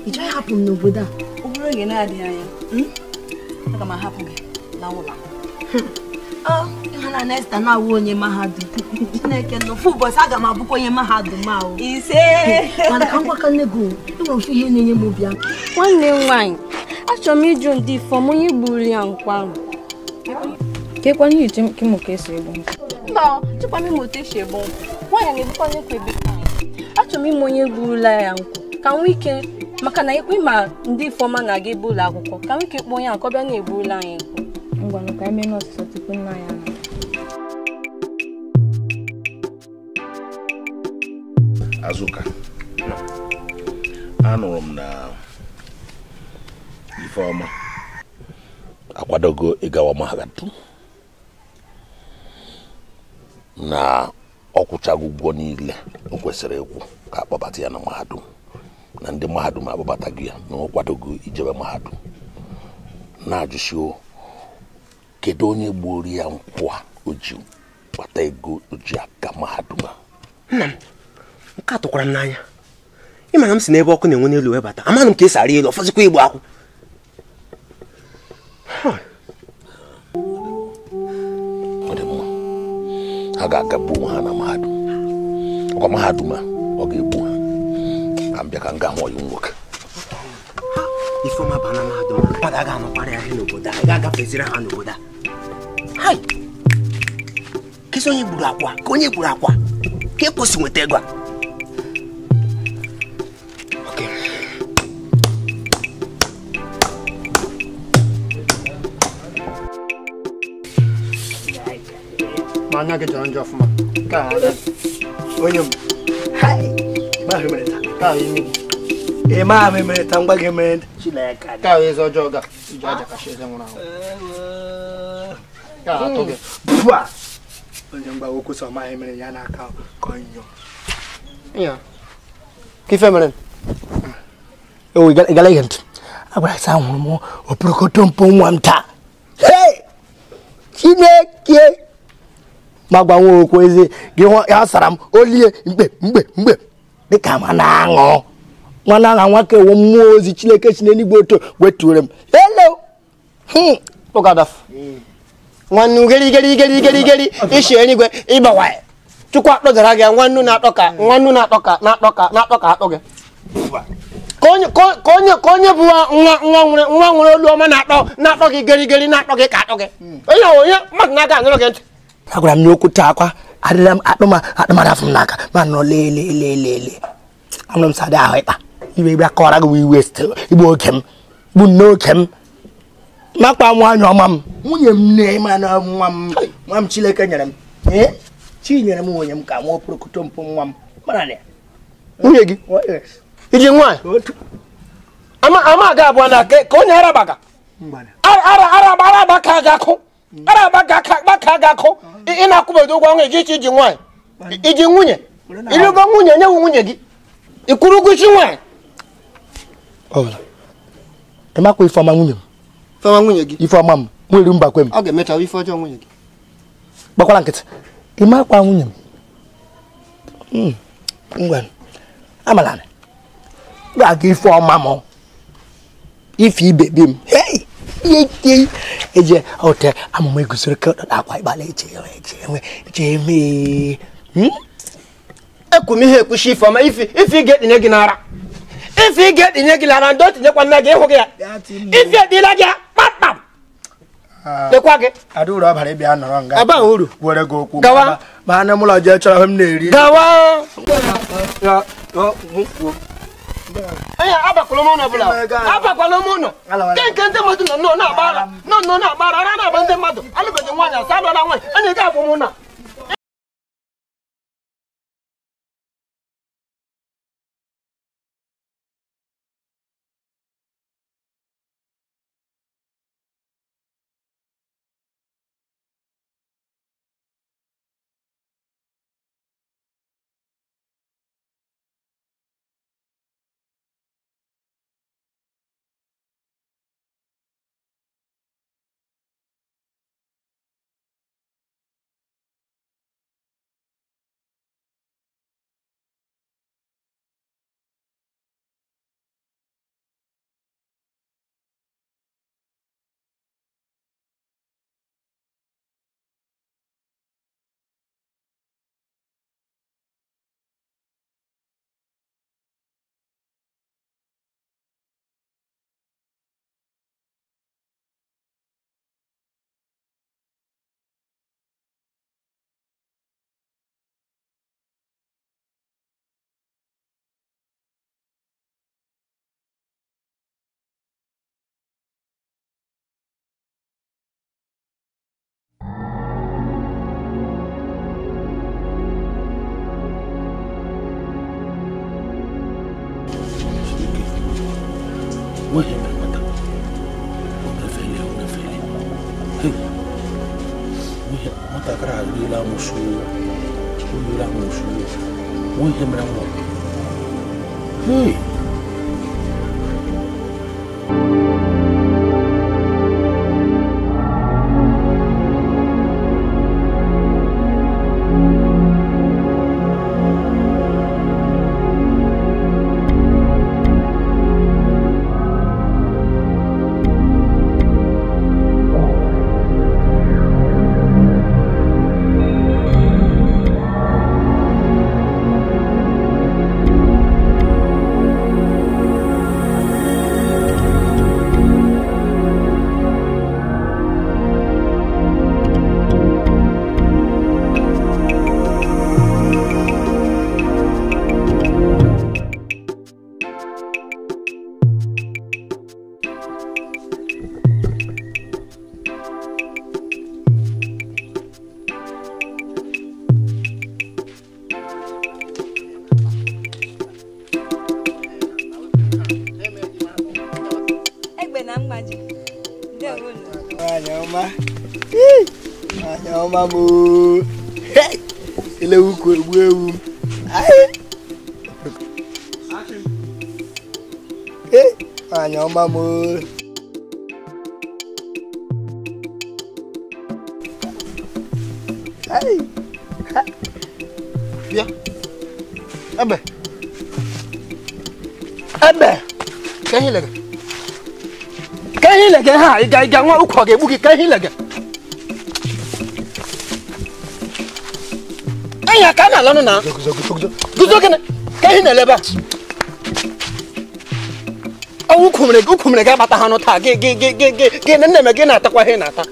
ị chọghị hapụ m n'obodo a ọ bụrụ oge na-adịghị anya hmm? aga m ahapụ gị na ụlọ ịhụna nesta na-awụ onye mahadum chineke n'ofu ụbọchị aga m abụkwa onye mahadum ahụ ise mana ka ngwaka nne gị enwere ofu ihe na-enye m obi aka nwanne m nwaanyị achọrọ m ịjụ ndị fọm onye gburu ya nkwarụ ke kwanye iche kimo ka esi egbu nkwụ mba chekwa m ime otu esi egbu nkwụ nwaanyị na-ebukwa n'ekwu ebe achọrọ m ime onye gburula ya nku ka nwee ike maka na ikwe ma ndi ifeọma na-aga ebe ụlọ akwụkwọ ka nwee ike kpọọ onye akọ bịa na-egburula anyị ngwa n'o ka eme n'ọsịsọ tupu nna ya Azụka anụrụ m na ifeọma akwadogo ịgawa mahadum na ọ ụgwọ niile o kwesịrị ịkwụ ka akpọbata ya na mahadum na ndị mahadum gị ya na ọ ijebe mahadum na-ajụsio kedu onye gburu ya nkwụ a o kpata ego o ji mahadum a nna m nke a m n'anya ma na m si n'ebe ọkụ na-enwe n'elu webata amanụ m ka esi arị elu ọfọzikwa igbo akwụ ha ga-agagbu onwe ha na mahadum ọkwa mahadum a ọ ga-egbu ha na m bịa ka m gaa hụ ọyụ ifeoma ba na mahadum ọ aga anọkwara ya n'obodo a ga-agafeziri ha n'obodo a kesi onye gburu akwa ka onye gburu akwa a e kwesị nweta ego a ma anya gị jọrọ njọ ọfụma nke a onye m ị ma ahụ emerịta ka ahụ eze ọjọọ ga iji aja kacha eze nwụrụ anwụ ka atụ gị bua onye mgbawa okwu sọ ma emere ya ka nyụọ ya ma gwa nwa okwu eze gị ha sara m olie mgbe mgbe mgbe dịka ma na-aṅụ nwana aha nwa kewo mmụọ ozi chineke si n'eluigwe oto wetuore m elo hmm. nwannu geri geri geri geri geri ishi eluigwe ịgbawa chukwu akpọgara gị nwannu na-atọ ka nwannu na akpọ ka na akpọ ka na akpọ ka akpọ gị ka onye ka onye bụ nwa nwa nwere nwa nwere olu ọma na-atọ na-atọ gị geri geri na-atọ gị ka atọ gị onye onye mmadụ na-aga anụrụ gị ntị agwara m n'okwute okwu akwa adịla m akpụ ma akpụmara afọ m n'aka ma nọ m ahụ ịkpa iwe ịbịa kọwara gị iwe igbu m a na ga akụ ị na-akwụbedo ụgwọ ọnwa iji nwaanyị iji nwunye ịrịgo nwunye nye nwunye gị ịkwụrụ ụgwọ isi nwaanyị ịmakwa ifeọma nwunye m ifeọma m nwere mbakwe m hmm. ga ife ibe eje eje hotel amụma egosiri ka ọdọdọ akwa ịgbalị eche eche enwe eche eme ekwum ihe ekwuchi ife ọma ife ị ga-etinye gị n'ara ife ị ga gị n'ara ndị otinyekwa nne gị ịhụ gị ya ife edila gị kpakpam lekwa gị adauru abalị bịa nga aba gawa eri gawa ee abakwala m ọbụla abakwala m ụlọ nke nke ndị mmadụ nọ nnọọ na-agbara nọ na-agbara ara na ndị mmadụ alụbeghị nwanyị asa alụọla nwaanyị anya ga-abụ m na ọma m elewu ka egbu ewu anya ọma m bịa ebe ebe ka ihe lege ka ihe lege ha ị ga-aga nwa ụkwa ga-egbu gị ka ihe lege ala nụ na guzo ka ihe na eleba ọnwụ ukwumere gị gị ha taa gị gị nne me na-atakwa ihe na-ata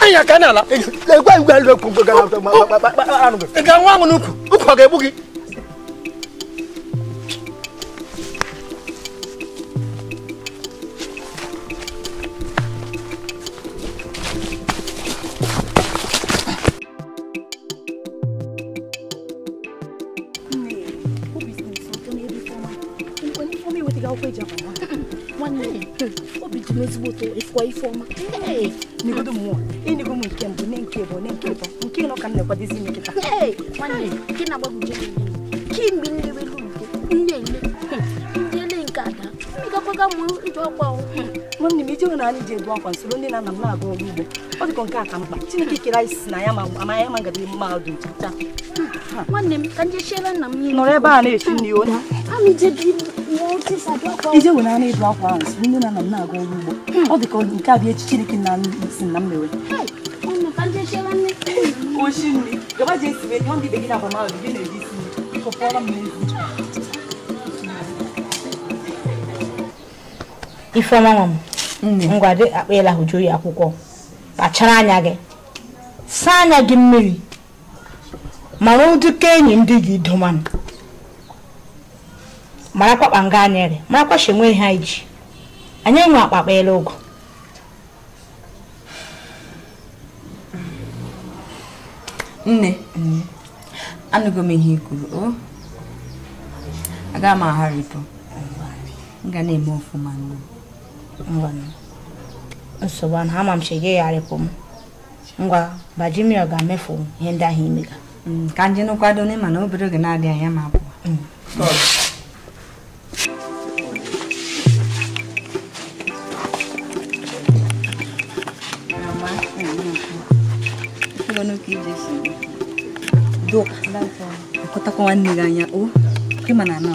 anyị na ala gwa gwa gwa gwa gwa gwa gwa gwa nwanne m ije nwere anyị ji ebu akwa nsoro ndị na nna m na-aga ọrụ ugbo ọ dịkọ nke a ka mkpa Chineke kere anyị si na ya ma ama ya ma ngadị nwanne m ka njechire nna m nọrọ ebe a na-echi nri onye ije nwere akwa ahụ nsoro ndị na nna m na-aga ọrụ ugbo ọ dịkọ nke a bụ echi Chineke na si na m oshi nri ndị be gị na ifeọma nwa m ngwa dị akpa ya akwụkwọ kpachara anya gị saa anya gị mmiri mara ụdịka enyi ndị gị domanụ mara kwakpa nga anyịrị mara kwasha enweghị ha iji anyị nwe akpakpa ele ụgwọ nne anụgo m ihe ikwuru o agaghị m agharịpụ m ga na-eme n'ụlọ ngwa nsogbu ahụ ama m chege yigharịpụ m ngwa bajimia ga-emefu ihe ndị ahụ imega ka nje n'ụkwado n'ịma na obere oge na adị anya ma abụọ dụkọtakwa nwanne gị anya o ịma na anọ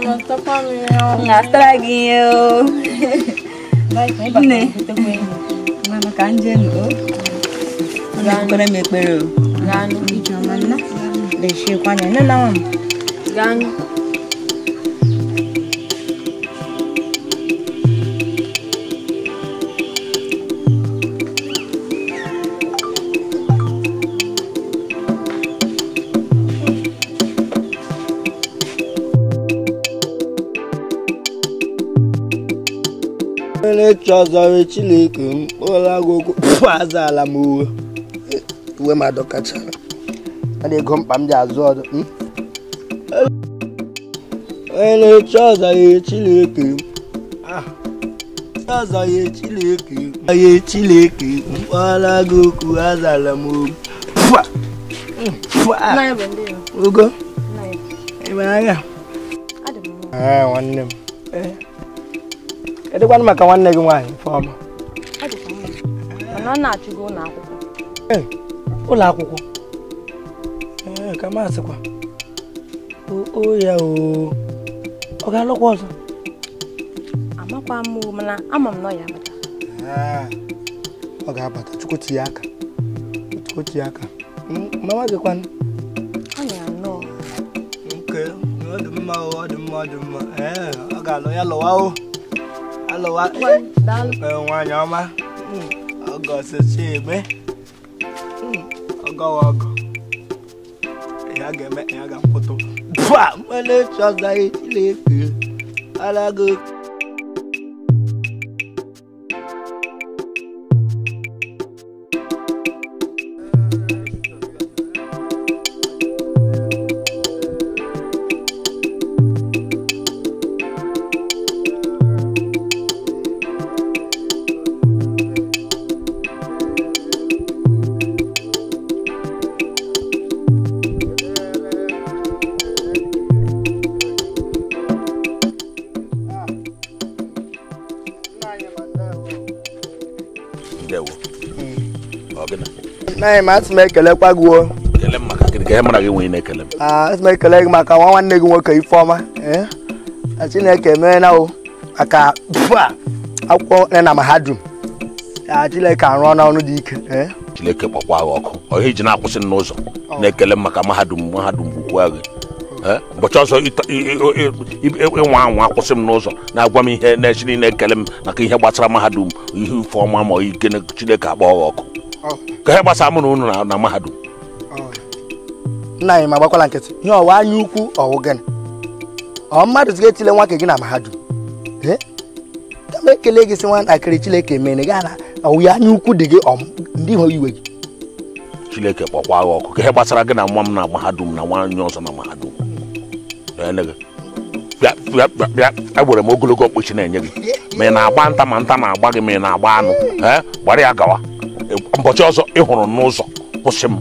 Nasta pameo. Nasta lagi yo. Nih. Mama kanje no. Kuna mekbero. Ganu. Ijamana. Deshe kwanya nana wam. Ganu. ọlaechi ọzọrọ chineke mkpụrụagụgụ azala m uwe uwe ma adọkachara ọ na-ego mkpa m ji azụ ọdụ hmm? onye na-echi ọzọrọ chineke ah, ọzọrọ chineke onye chineke mkpụrụagụgụ azala m ah, ah. ugo ebe agha nwanne m eh. kedụkwanụ maka nwanne gị nwaanyị Ifeọma na-achụgo ụlọ akwụkwọ ụlọ akwụkwọ ee ka masịkwa o ya ọ ga-alụkwa ọzọ ọ ga-abata chukwu ya aka hmm, mama ọ alụwa nwaanyị ọma ọgọ sochi eme ọgọwa ọgọ ya ga-eme ya ga-akwụtụ bua mmele chọzaghị chileke alago anyị ma asị m ekelekwa gị asị m ekele gị maka nwa nwanne gị nwoke Ifeọma e? Chineke emeela o maka akwụkwọ e na mahadum Chineke arụọ n'ọrụ dị ike e? Chineke gbakwa gị ọkụ ọhịa ji na-akwụsị n'ụzọ na-ekele maka mahadum mahadum bụkwa gị e? ụbọchị ọzọ ịnwa anwa akwụsị m n'ụzọ na-agwa m ihe na-echiri na-ekele m maka ihe gbasara mahadum ihe Ifeọma ma ike Chineke akpọ gị ọkụ ka ihe gbasa mụ na ụnụ na mahadum nna anyị ma agbakwala nkịtị ihe ọwa anya ukwu ọwụ gịnị ọ mmadụ zig etile nwa nke gị na mahadum kama ekele gị si nwatakịrị Chileke mere gaa na ya anya ukwu dị gị ndị ihu iwe gị Chileke kpọkwa gị ọkụ ka ihe gbasara gị na nwa m na mahadum na nwaanyị ọzọ na mahadum bịa egbere m ogologo okpuchi na-enye gị ma ị na-agba nta ma nta na-agba gị ma ị na-agba anụ gbara ya gawa mbọchị ọzọ ịhụrụ n'ụzọ kwụsị m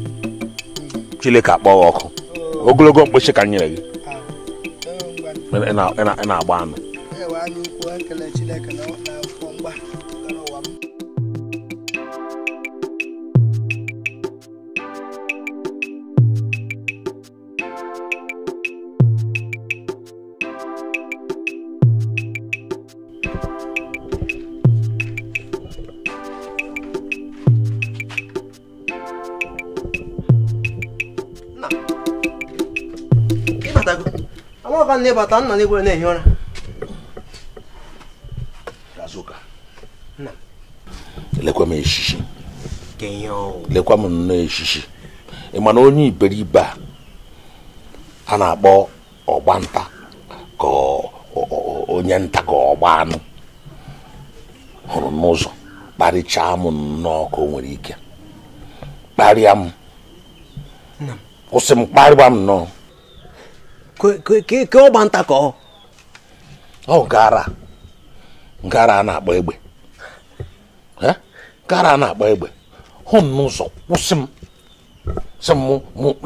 ka gị ọkụ ogologo mkpịsị ka nyere gị ah, ị na-agba anụ amaka nne bata nna n'egwere na-ehi ụra azụka lekwa m eshishi lekwa m nnọọ eshishi ị ma na onye iberibe a a na-akpọ ọgbanta ka onye nta ka ọgba anụ hụrụ n'ụzọ kparịchaa m nnọọ ka o nwere ike kparịa m kwụsị m kparịba m nnọọ ka ọgba nta ka ọ gara gara a na-akpọ egbe gara a na-akpọ egbe hụ m n'ụzọ kwụsị m sị m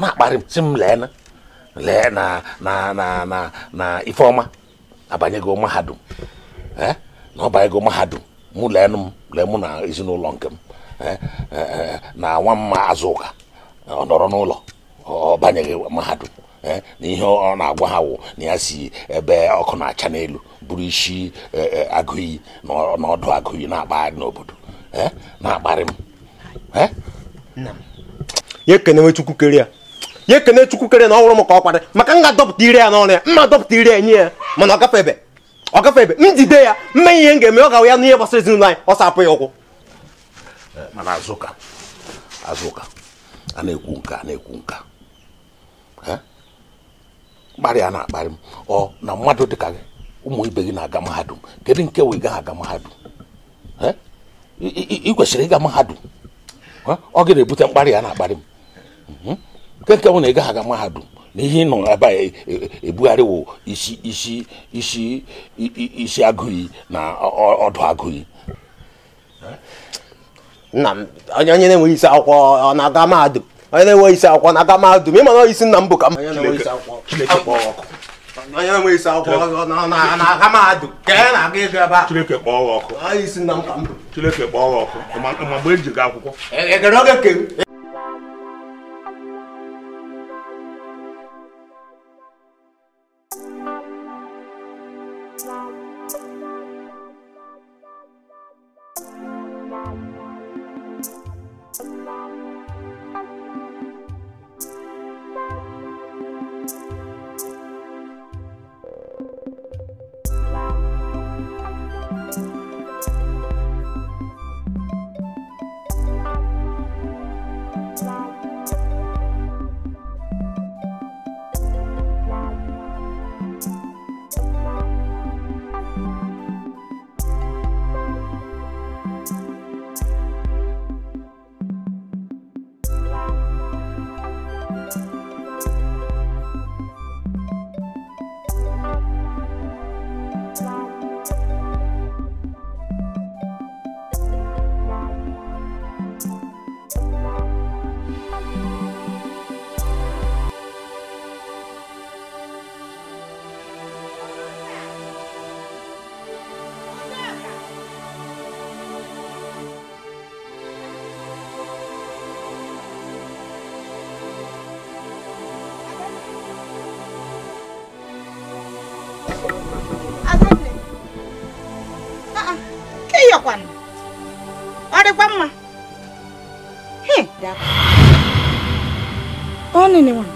na-akparị sị m lee na lee na na na na na ifeọma abanyego mahadum na ọ banyego mahadum mụ lee m lee mụ na ezinụlọ nke m na nwa mma azụ ụka ọ nọrọ n'ụlọ ọ banyeghị mahadum Eh, na ihe ọ na-agwa ha wụ na ya si ebe ọkụ na-acha n'elu bụrụ isi eh, eh, agụiyi na ọdụ agụiyi na-akpagharị n'obodo na-akparị m ya ekene nwe chukwu kere ya ya ekene chukwu kere na ọ m ka ọ kwadị maka m ga-adọpụta ire ya n'ọrụ ya mma adọpụta ire ya nye ya mana ọ gafe ebe ọ gafe ebe njide jide ya mme ihe m ga-eme ọ gawa ya n'ihe gbasara ezinụlọ anyị ọ sapụ ya ụkwụ mana azụka azụka a na-ekwu nka a na-ekwu nka mkparị na-akparị m ọ na mmadụ dịka ka ụmụ ibe gị na-aga mahadum kedu nke wee gaghị aga mahadum ị kwesịrị ịga mahadum ọ gị na-ebute mkparị ya na-akparị m mhm. nke nke bụ na ị gaghị aga mahadum na ihe ị nọ ebe a e, e, ebugharịwo isi isi isi isi agụghị na ọdụ agụghị nna m onye na-enweghị isi akwụkwọ ọ na-aga mahadum onye na-enweghị isi akwụkwọ na-aga mahadum isi nna m bụ ka m onye na isi akwụkwọ na-aga mahadum na-aga a Chineke ọkụ isi nna m ka m Chineke kpọọ ọkụ ma e ga akwụkwọ e, e, on anyone.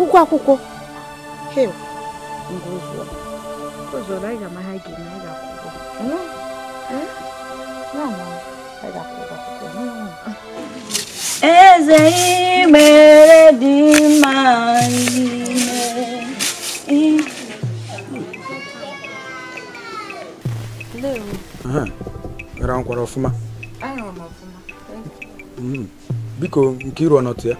ụgwọ akwụkwọ não ụzọrọ anyị não amagha gị não anyị ga-akwụkwọ eze ihe mere dị mma ihe ara nkwara ọfụma Mm. biko nke iru ọnọtụ ya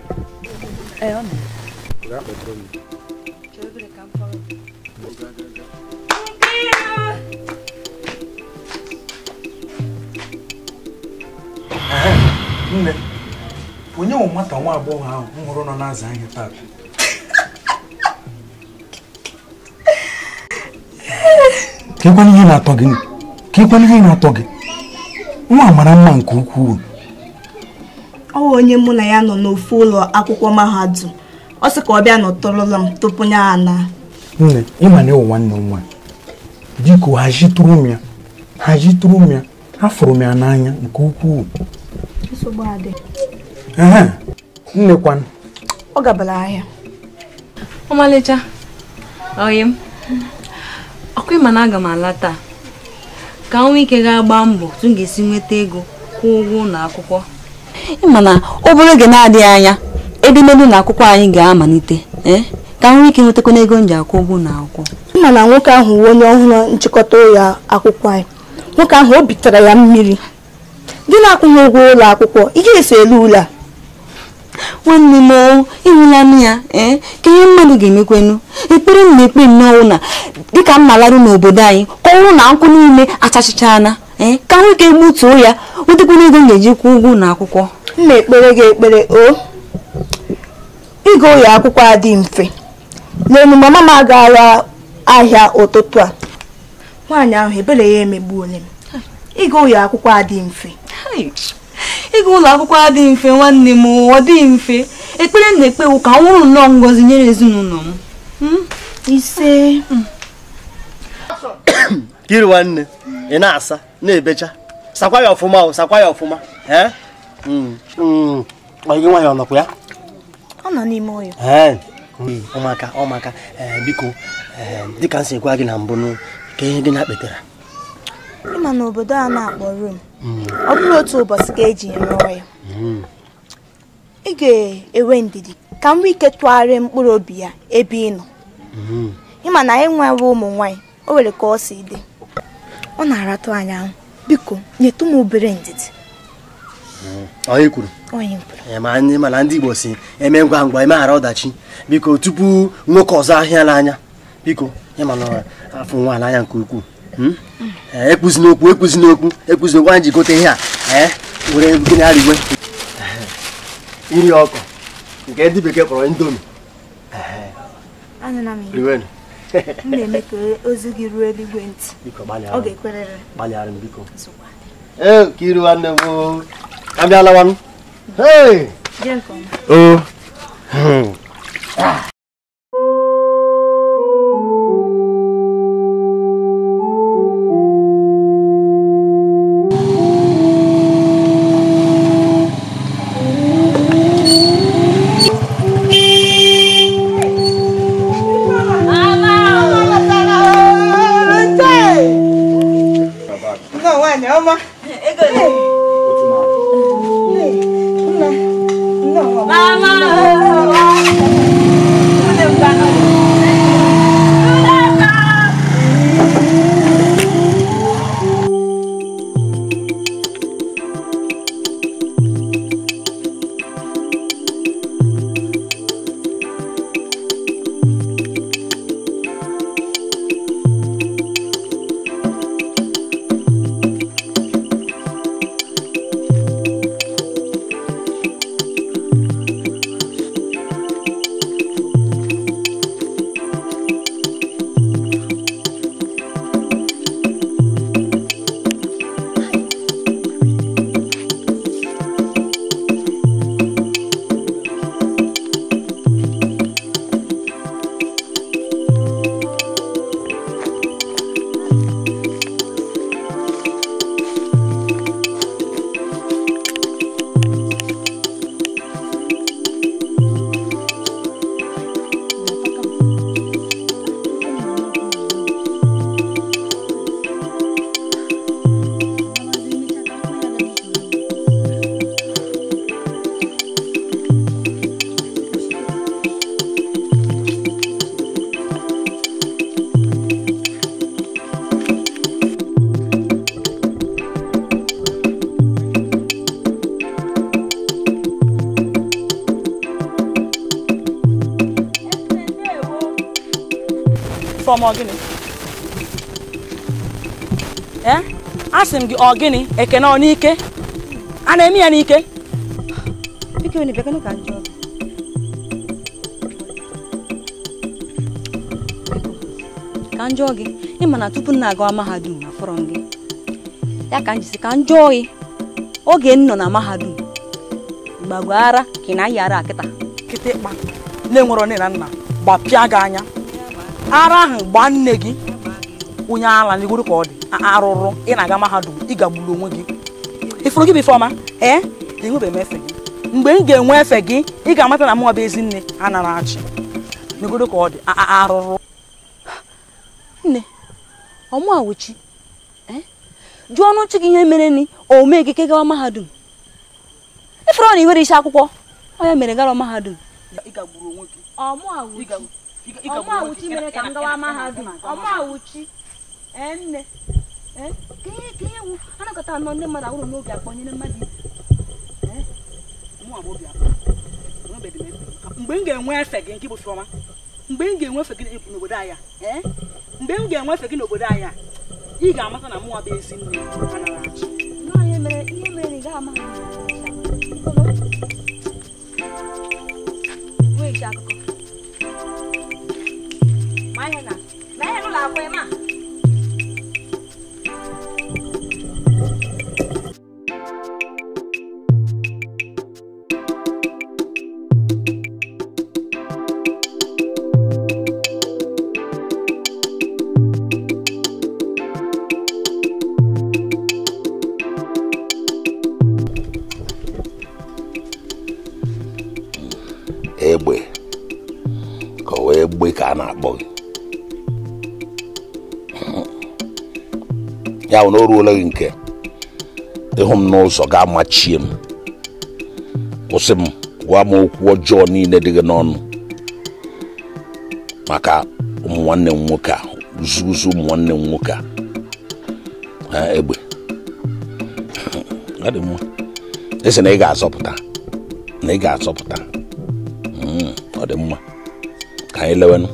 nne onye nwe nwata nwa agbọghọ ahụ m hụrụ nọ na-aza ahịa taa. ka ịkwana ihe na-atọ gị nwa mara mma nke ukwuu ọwụ onye mụ na ya nọ n'ofe ụlọ akwụkwọ mahadum ọ sị ka ọ bịa nọtọrọla m tupu ya ana nne ịma na ịwụ nwanne m nwaanyị biko hajitụrụ m ya hajitụrụ m ya afụrụ m ya n'anya nke ukwuu nne nnekwanụ ọ gabara ahịa ọmalịcha oyi m ọkụ ịma na aga m ala taa ka nwa ike ga-agba mbọ tụ m ga-esi nweta ego kwụọ ụgwọ ụlọ akwụkwọ ịmana obere oge na-adịghị anya edemede na akwụkwọ anyị ga-amalite eh? ka m nwee ike ịnwetakwa n'ego m ji akwụ ụgwọ na akwụkwọ na nwoke ahụ wuo onye ọhụrụ nchịkọta ụlọ akwụkwọ anyị nwoke ahụ o bitere ya mmiri gị na-akwụghị ụgwọ ụlọ akwụkwọ ihe esi elu ụlọ a nwanne m oh, ịhụla nne ya eh? ka ihe mmadụ ga-emekwenu ekpere m na-ekpe nnọọ na dịka m na n'obodo anyị kọwụrụ na nkwụ niile achachichala ee eh, ka nwoke gbutuo ya wetekwana ego m ga-eji kwụ ụgwọ na akwụkwọ m na-ekpere gị ekpere o oh, ịga ụlọ akwụkwọ adị mfe n'elu mama m agaala ahịa ụtụtụ a nwaanyị ahụ ebere ya emegbu onye m ịga ụlọ akwụkwọ adị mfe ịga ụlọ akwụkwọ adị mfe nwanne m ọ dị mfe ekpere na-ekpewu ka nwụrụ nnọọ ngọzi nyere ezinụlọ m hmm? ise kiri hmm. nwanne ị na-asa na-ebecha sakwa ya ọfụma sakwa ya ọfụma hmm, hmm. nwaanyị ya? ọ nọ n'ime ọya ọmaka hmm, ọmaka biko dịka m si gwa gị na mbụ ka ihe gị na kpetara ịma na obodo a na-akpọ Rom ọ bụrụ otu ụbọchị ka eji rụọ ya ị ga-enwe ndidi ka m nwee ike tụgharịa mkpụrụ obi ya ebe ị nọ ịma na anyị ụmụ nwaanyị o nwere ka ọ si dị ọ na-aratụ anyị ahụ biko nyetụ m obere ndidi hmm, onye kwuru anyị mana ndị igbo si eme ngwa ngwa emeghara ọdachi biko tupu nwoke ọzọ ahịa n'anya biko ya mana afọ nwa n'anya nke ukwuu hmm? mm. ekwuzi n'okwu ekwuzi n'okwu ekwuzi n'okwu anyị ji gote ihe a were gịnị arigwe iri ọkụ nke ndị bekee kpọrọ indomi m na-eme ka ozi gị ruo eluigwe ntị ọ ga-ekwerere gbalịara m biko ee ka iru nwanne m abịalawa m hmm. asị m gị ọ gịnị ekene ọ n'ike a na-eme ya n'ike ka njọ gi ni mana tupu nna aga mahadum na fọrọ ya ka njisi ka njọ gị oge nno na mahadum gbagwo ara ka ị na-ayị ya ara akịta kịtịkpa na na nna pia ga anya ara ha gba nne gi onye ala n'igoro ka ọ dị arụrụ ị na-aga mahadum ị gagburu onwe gị ifuru gị bụ ifeọma ee enwebeghị m efe gị mgbe m ga-enwe efe gị ị ga-amata na mụ bụ ezi nne a nara achị n'igoro ka ọ dị arụrụ nne ọmụa wuchi jụọ ọnụ chi gị ihe mere ni o mee gị ke gawa mahadum ifuru na iwere isi akwụkwọ ọ ya mere gara mahadum ọmụa wuchi mere ka m gawa mahadum ọmụa wuchi nne eh? ka ihe ewu anakọta anọ ndị mmadụ awụrụ n'obi akpọ mmadụ eh? mgbe m ga-enwe efe gị nke bụ mgbe m ga-enwefe gị n'obodo anya eh? mgbe m ga-enwefe gị n'obodo anya ị ga-amata na mụnwa bụ ezi ma ihe na ihe n'ụlọ ya bụ na o gị nke ịhụ m n'ụzọ ga machie m kwụsị m gwa m okwu ọjọọ niile dị gị n'ọnụ maka ụmụnwanne nwanne m nwoke a uzuzu ụmụ m nwoke a egbe esi na ị ga-azọpụta na ị ga-azọpụta hmm, ọ dị mma ka anyị lewenụ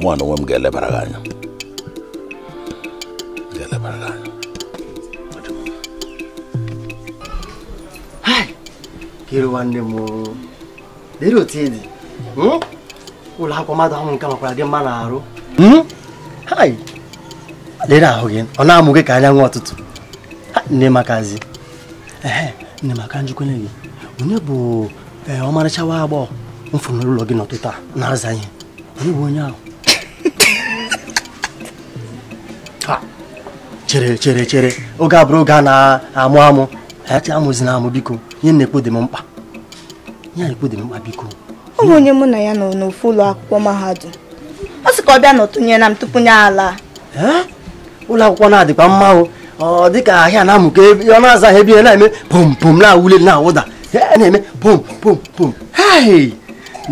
na onwe m ga-elebara gị anya hiri nwanne m dịrị otu ị dị ụlọ akwụkwọ mmadụ ahụ nke makwara gị mma n'arụ ahụ gị ọ na-amụ gị ka nwa ọtụtụ nne makazi nne maka njukwene gị onye bụ ọmarịcha nwa agbọghọ mfụrụ gị n'ụtụtụ a na-aza ihe onye bụ onye ahụ chere chere chere oge abụrụ oge a na-amụ amụ acha amụzina amụ biko ihe na-ekpo dị m mkpa ihe na-ekpo dị m mkpa biko ọ bụ onye mụ na ya nọ n'ofu ụlọ akwụkwọ mahadum ọ sị ka ọ bịa na m tupu nye ala ụlọ akwụkwọ na-adịkwa mma ọ dịka ahịa na-amụ ka ọ na-azaghị ebe ihe na-eme pom pom na-awụle na-awụda na-eme pom pom pom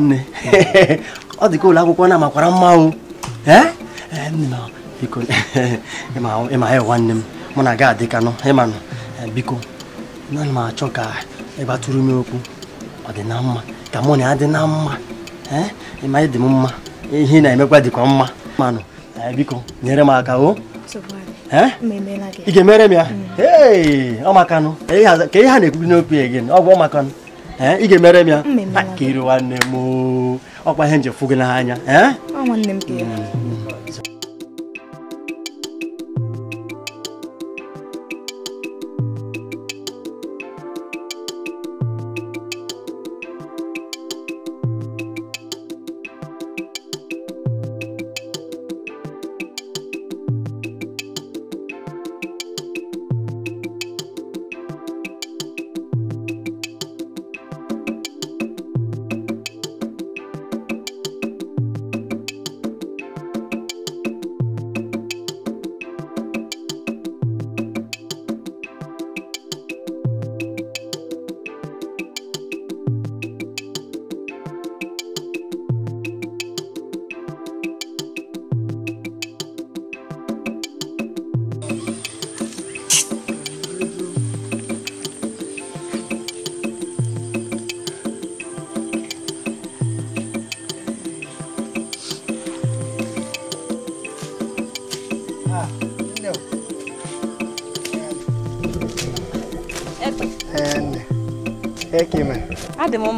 nne ọ dịka ụlọ akwụkwọ na-amakwara mma o biko ịma ya nwanne m mụ na ga adịkanụ ịmanụ biko naanị m achọ ka ị e gbatụrụ m okwu ọ dị na mma ka mụ na ya eh? e dị e na mma ịma dị m mma ihe na-emekwa dịkwa mma manụ biko nyere m aka o ị ga-emere ya ọmakanụ ka ihe eh? na ekwubi n'okwu ya gị eh? ọmakanụ ị ga-emere m ya ka nwanne m ihe gị n'anya mm.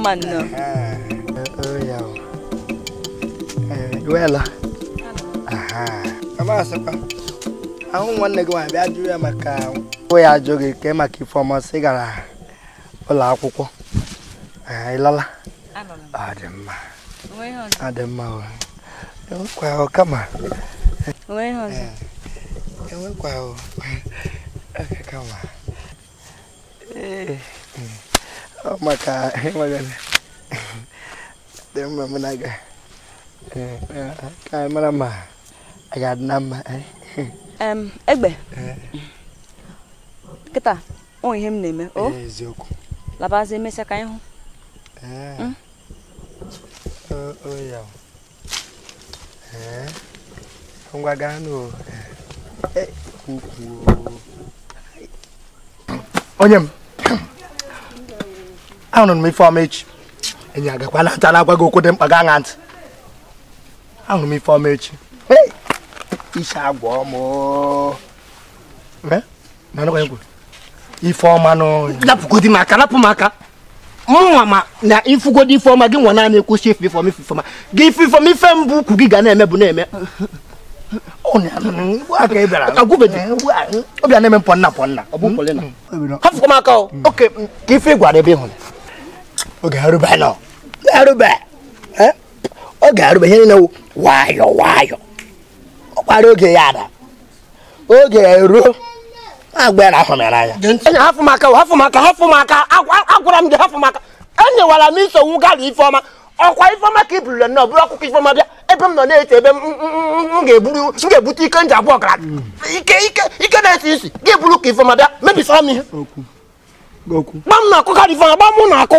mình nữa Öyle. Duela. Aha. Kama sapa. Ahun wannan gwa bịa jụ ya maka o ya jụ gị ka maka ifeọma sị gara ụlọ akwụkwọ. Ee, ịlala. Ọ dị mma. Ọ dị mma. Enwekwa ọ kama. Enwekwa ọ. Enwekwa ọ. Kama. maka magana dema munaga ka mara ma aga nama eh. em egbe kịta o ihe m na-eme o eziokwu labazi emesịa ka anyị hụ ngwa gaa n'o onye m ahụrụ m ifeọma echi enyi agakwa na na-agwa gị okwu dị mkpa gaa na ntị ahụrụ m ifeọma echi iche agwa ọmụ ifeọma napụgodi m aka napụ m aka mụnwa ma na ifugodi ifeọma gị nwa naanị ekwuchi ife ifeọma ife ifeọma gị ife ifeọma ife mbụ ukwu gị ga na-eme bụ na-eme ọbịa na-eme mpọ nna pọ nna m aka oh. hmm. oke ka ife gwara ebe ịhụrụ Eh? oge arụba ihe niile nwayọ nwayọ ọ kpara oge ya ada oge ruo agbara ahụ n'anya hafụ maka hafụ maka hafụ maka agwara m gị hafụ maka enyewara m isogbu gala ifeọma ọkwa ifeọma ka i burula nọ bụrụ ọkụkọ ifeọma bịa ebe m nọ na-ete ebe m ga-ebute ike nji abụọ gara ike na-esi isi gị bụrụ ka ifeọma bịa mebisara m ihe gba m na-akụ gala ifeọma gba na-akụ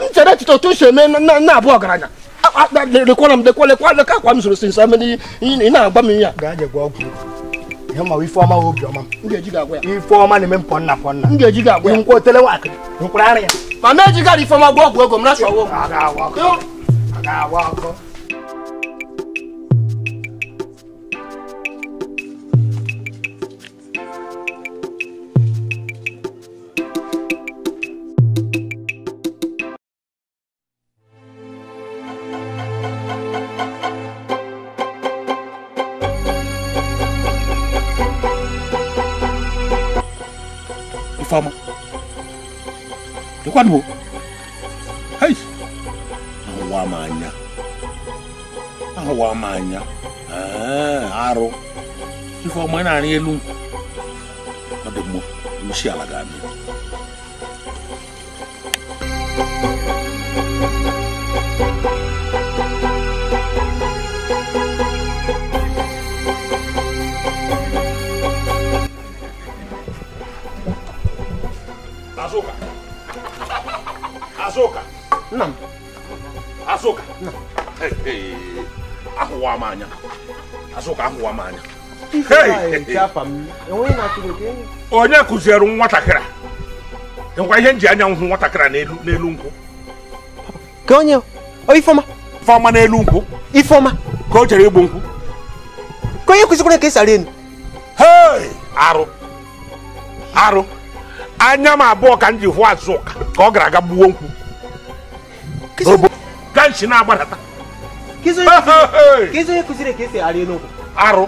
ntɛrɛ titɔ to sɛ mɛ na na bɔ garanya le kɔnɔ le kɔnɔ le kɔnɔ le k'a kɔ a misiri sinsan mɛ ni i n'a ba min ya. garaje gɔ kun ne ma i fɔma o biɔma. n gɛ ji ka goya. i fɔma nin bɛ pɔn na pɔn na. n gɛ ji ka goya. n ko tɛlɛ wa n kura yɛrɛ. ma mɛ ji ka di fɔma gɔ gɔ gɔ n bɛ na sɔn o. a ka wa kɔ a ka wa kɔ. kwan wo hei ahowa ama anya ahowa ama anya arụ ife ọma na-arị elu ọ dị mma ushi ala anya azụka ahụwa m anya onye kụziere nwatakịra, ngwa ihe nji anya nhụ nwatakịrị n'elu nkwụ ka onye ifeọma ifeọma n'elu nkwụ ifeọma ka o chere igbu nkwụ ka onye kụzikwara ka esi arị enu arụ arụ anya m abụọ ka m ji hụ azụka ka ọ gara aga gbuo nkwụ na-agbadata kizo kuzire ka esi arị elu nkwụ arụ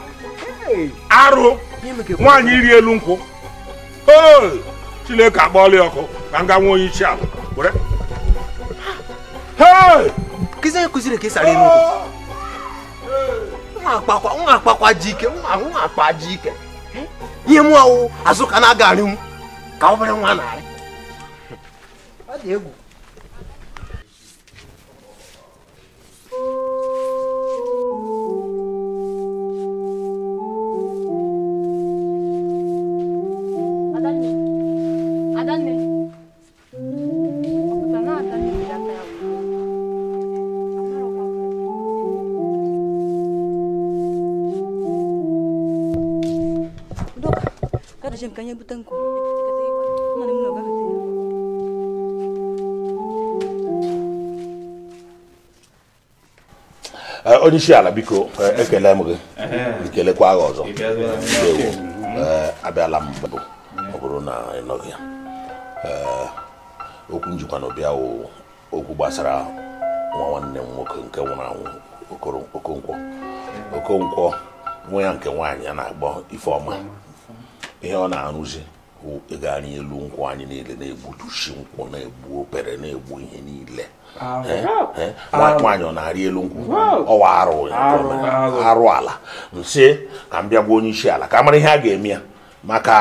arụ nwaanyị iri elu nkwụ chineke akpọọla ọkụ ka m ga nwe onye isi ala were kizo onye kụziri ka esi arị elu nkwụ nwa akpakwa ji ike nwa akpa ji ike ihe mụ ọwụ azụ ka na-aga arịnwu ka obere nwa na-arị ọ dị egwu Jem kanya onye isi ala biko eh, ekele m gị ikelekwa eh. agha ọzọ eh, abịala m mbụ mm. ọ bụrụ na ịnọghị nọghị ya okwu njikwa na ọbịa okwu gbasara nwa nwanne m nwoke nke nwụrụ anwụ okonkwo nwa ya nke nwaanyị a na-agbọ ifeọma ihe ọ na-arụzi ịga anyị elu nkwụ anyị niile na-egbutusi nkwụ na-egbu opere na-egbu ihe niile nwata nwaanyị ọ na-arị elu nkwụ ọwa arụ ala nsị ka m bịa onye isi ala ka mara ihe a ga-eme ya maka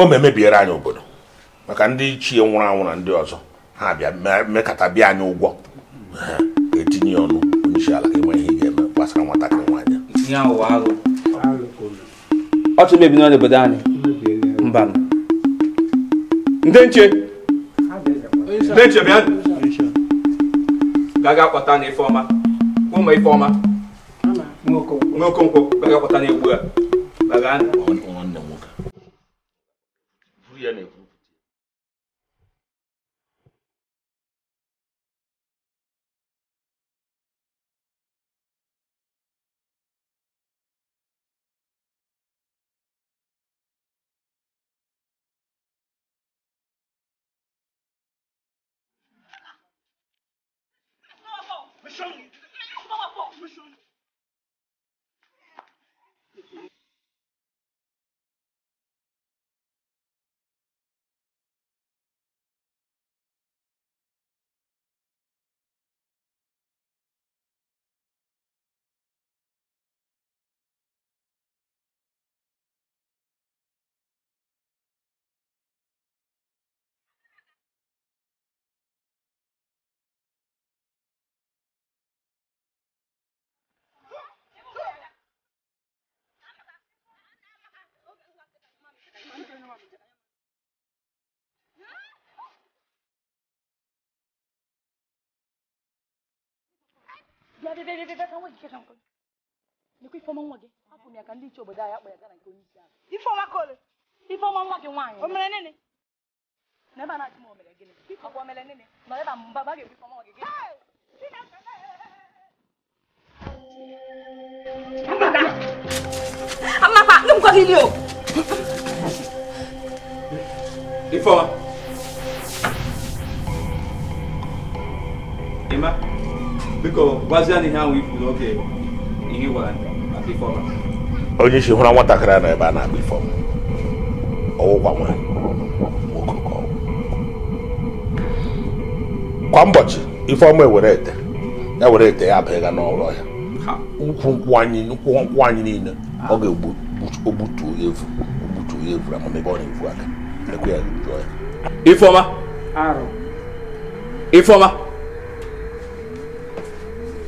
o memebiere anyị obodo maka ndị ichie nwụrụ anwụ na ndị ọzọ ha bịa mekata bịa anyị ụgwọ etinye ọnụ onye isi ala ka enwe ihe ga-eme gbasara nwatakịrị nwaanyị ọchụ mebi n'ọnụ obodo anyị mba ndị nche ndị nche bịa gaga kpọta na ifeọma ụmụ ifeọma n'okonkwọ gaga kpọta na egwu a gaga nwanne m nwoke Bịa bịa bịa bịa ka nwa gị kekwa Lekwa ifeọma nwa gị hapụ ya ka ndị iche obodo anyị akpọ ya gara nke onye isi ahụ. Ifeọma kole. Ifeọma nwa gị nwaanyị. O mere nene. Na ebe a na-achị m o mere gịnị? Ọkwa o mere nene. Nọ ebe a mba ba ga-egbu ifeọma nwa gị gịnị? Amaka! Amaka! Ndị m gọdị ili o! Ifeoma. Ịma biko gwazie na ọ ahụ ifu ihe gwara maka Ifeoma. Onye isi hụrụ nwatakịrị na ebe a na-agba Ifeoma. Ọwụkwa nwa kwa ka ọwụ. Kwa ụbọchị Ifeoma ewere ete ya were ete ya abịa n'ụlọ ya. Ukwu nkwụ anyị niile ọ ga-egbutu ya efu egbutu ya efu na ọ na-efu ẹ kú yà enjoy. Ifeoma. Aro. Ifeoma.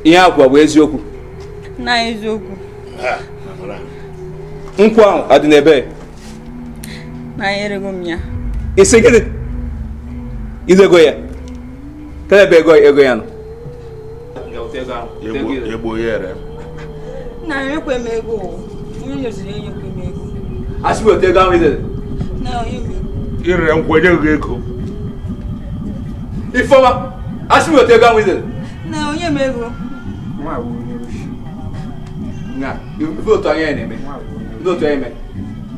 ihe akwa bụ eziokwu. na eziokwu. nkwụ ahụ adị n'ebe. na erego m ya. isi gịnị. izego ya. kedụ ebe ego ego ya nọ. egbo ya ere. na enyekwe m ego o. onye nyeziri enyekwe m ego. asị m otu ego ahụ izere. na onye m ịrịa nkwenye gị ego ifeọma asị m otu ego ahụ izere na onye m ego na ife otu anya ya na-eme ndị otu anya eme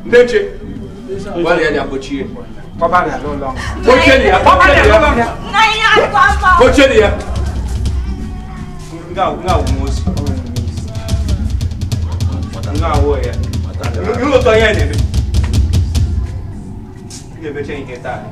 ndị nche gbalịa ya kpochie kpochie ya kpochie ya nga awụ osi nga awụ ya ndị otu anya ya na-eme ia ver quem, quem tá.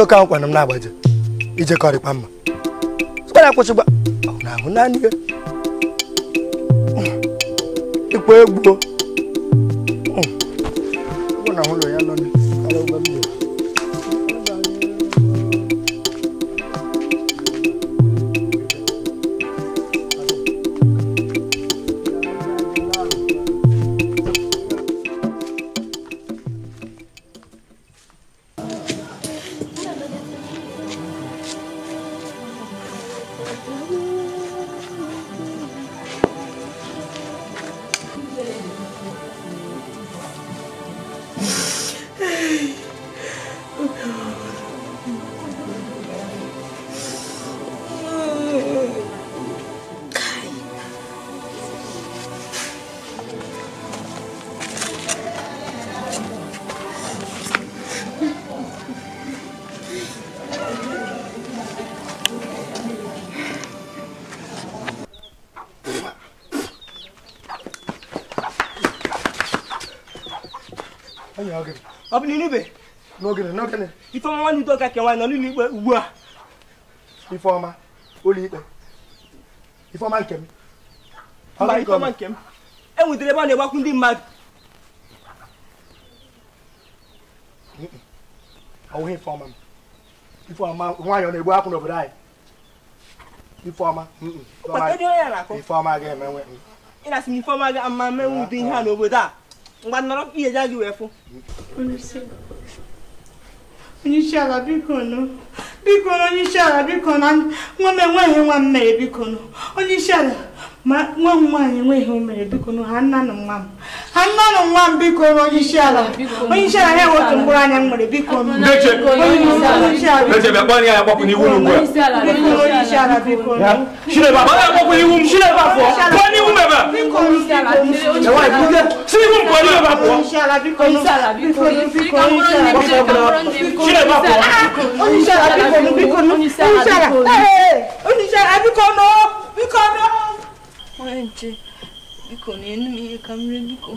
ide oke ahụ kwana m na-agbaji ijekọrịkwa mma kwara akwụsịgba ahụ naanị ya ịkwa egbuo kẹwàá nọ n'ụlọ ikpe ugbu a ifeọma ụlọ ikpe ifeọma nke m mba ifeọma nke m enwetara ebe a na-egbakwu ndị mmadụ ọwụghị ifeọma m ifeọma nwaanyị ọ na-egbu akwụ n'obodo anyị ifeọma ifeọma ga-emenwe ị na-asị na ifeọma ga-ama menwe ụdị ihe a n'obodo a mgbe nọrọ ihe ja gị wee fụ onye isi ala biko nụ onye isi ala biko na nwa m enweghị nwa m mere biko nụ onye isi ala ma nwa m nwaanyị enweghị o mere biko ha nna na nwa m nwa m biko onye isi ala onye isi ala ya nwe otu mkpụrụ anya m nwere biko biko biko biko biko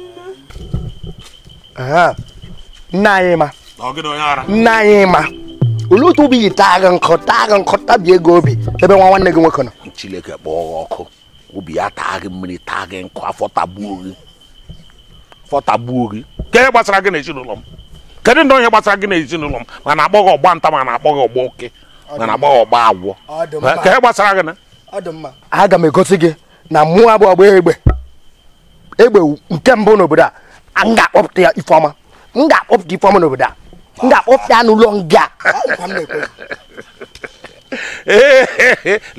nne anyị ma nne ma olee otu obi yi taa gị nkọ ebe nwa nwanne gị nwoke nọ Chineke kpọ ọkụ obi ya taa gị mmiri taa gị nkụ afọ tagbuo gị afọ tagbuo gị ke gbasara gị n'ezinụlọ m kedu ndị onye gbasara gị n'ezinụlọ m ma na-akpọ gị ọgba nta ma na-akpọ gị ọgba oke ma na-akpọ gị ọgba agwọ ke gbasara gị aga m egosi gị na mmụọ abụ egbe egbe nke mbụ n'obodo a m ga-akpọpụta ya ifeọma m ga-akpọpụta ifeọma n'obodo a m ga-akpọpụta ya n'ụlọ nga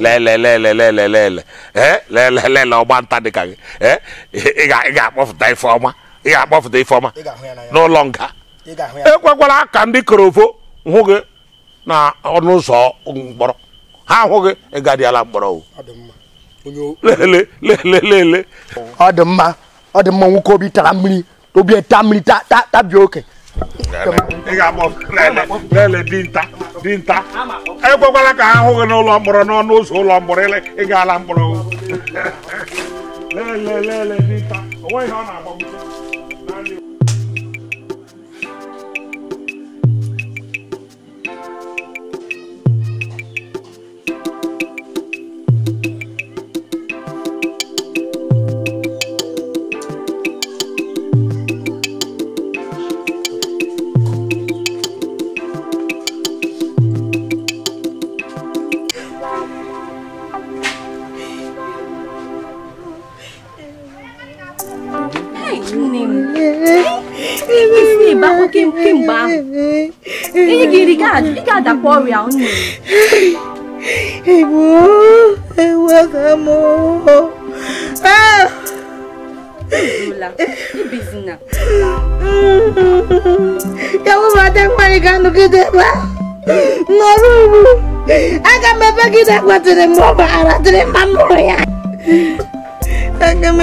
lelelelelelelelelelele ọgbanta dịka gị ị ga-akpọpụta ifeọma ị ga-akpọpụta ifeọma n'ụlọ nga ekwekwala ka ndị korovo hụ gị na ọnụ ụzọ mkpọrọ ha ahụ gị ị gadịala mkpọrọ lele lele lele ọ dị mma ọ dị mma nwoke obi tara mmiri obi ẹta mmiri ta ta bi oke. ị ga-akpọ lele lele dinta dinta ekwekwala ka ha hụ gị n'ụlọ mkpọrọ n'ọnụ ụzọ ụlọ mkpọrọ ị ga-ala mkpọrọ lele lele dinta onweghị ọ na-agba kemgbe ahụ kemgbe ahụ ihe gị iri ị ga-adakwa ọrịa m ibizina ya wụbata ga-anọgide ebe nọrọ ugbu aga m ebe gị ọ baghara dịrị mma mụrụ ya aga m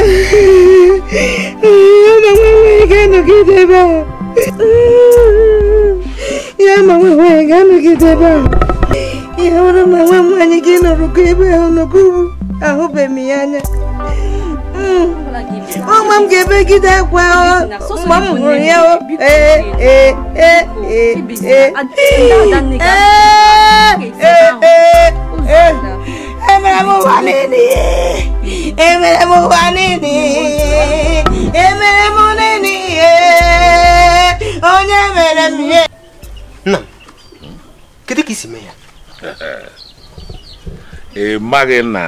ma nwenweghị ga-anọgide ebe a ya ma nwenweghị ga-anọgide ebe a ihe ụrụ ma nwa nwaanyị gị nọrụgo ebe ahụ nọgo ahụbeghị m ya anya ọma m ga-ebegide akwa mgbe m hụrụ ya ee ee a emere m ụwa niile emere m ụwa niile emere m niile onye mere m ihe nna kedu ka isi mee ya ị maghị na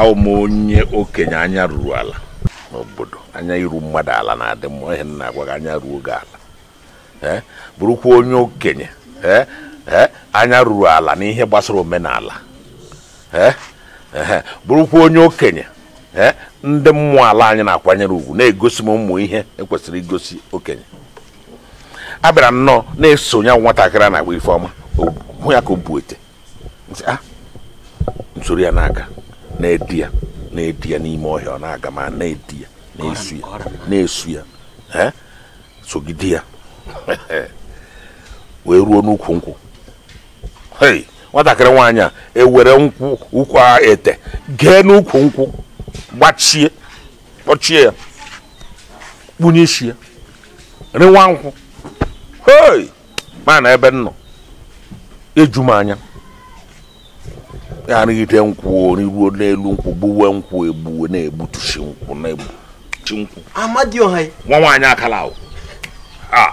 awụ m onye okenye anya ruru ala n'obodo anya iru mmadụ ala na-adị mma ihe nna agwa gị anya ruo gị ala bụrụkwa onye okenye ee anya ruru ala n'ihe gbasara omenala bụrụkwa onye okenye ndị mmụọ ala anyị na-akwanyere ugwu na-egosi m ụmụ ihe ekwesịrị igosi okenye a bịara nnọọ na-esonye nwatakịrị na-agba ifeoma hụ ya ka o bu ah! nsoro ya n'aka na-edi ya na-edi ya n'ime ọhịa ọ na-aga ma na-edi ya na-esu ya na-esu ya sogide ya wee ruo n'ukwu nkwụ hei nwatakịrị nwaanyị a ewere nkwụ ụkwụ a ete gee n'ukwu nkwụ gbachie kpọchie ya kpunye isi ya rịwa nkwụ hei ebe nnọ nọ eju m anya ya arịgide nkwụ riruo n'elu nkwụ gbuwe nkwụ egbuwe na-egbutusi nkwụ na-egbuchi nkwụ nwa nwaanyị akala ahụ ah.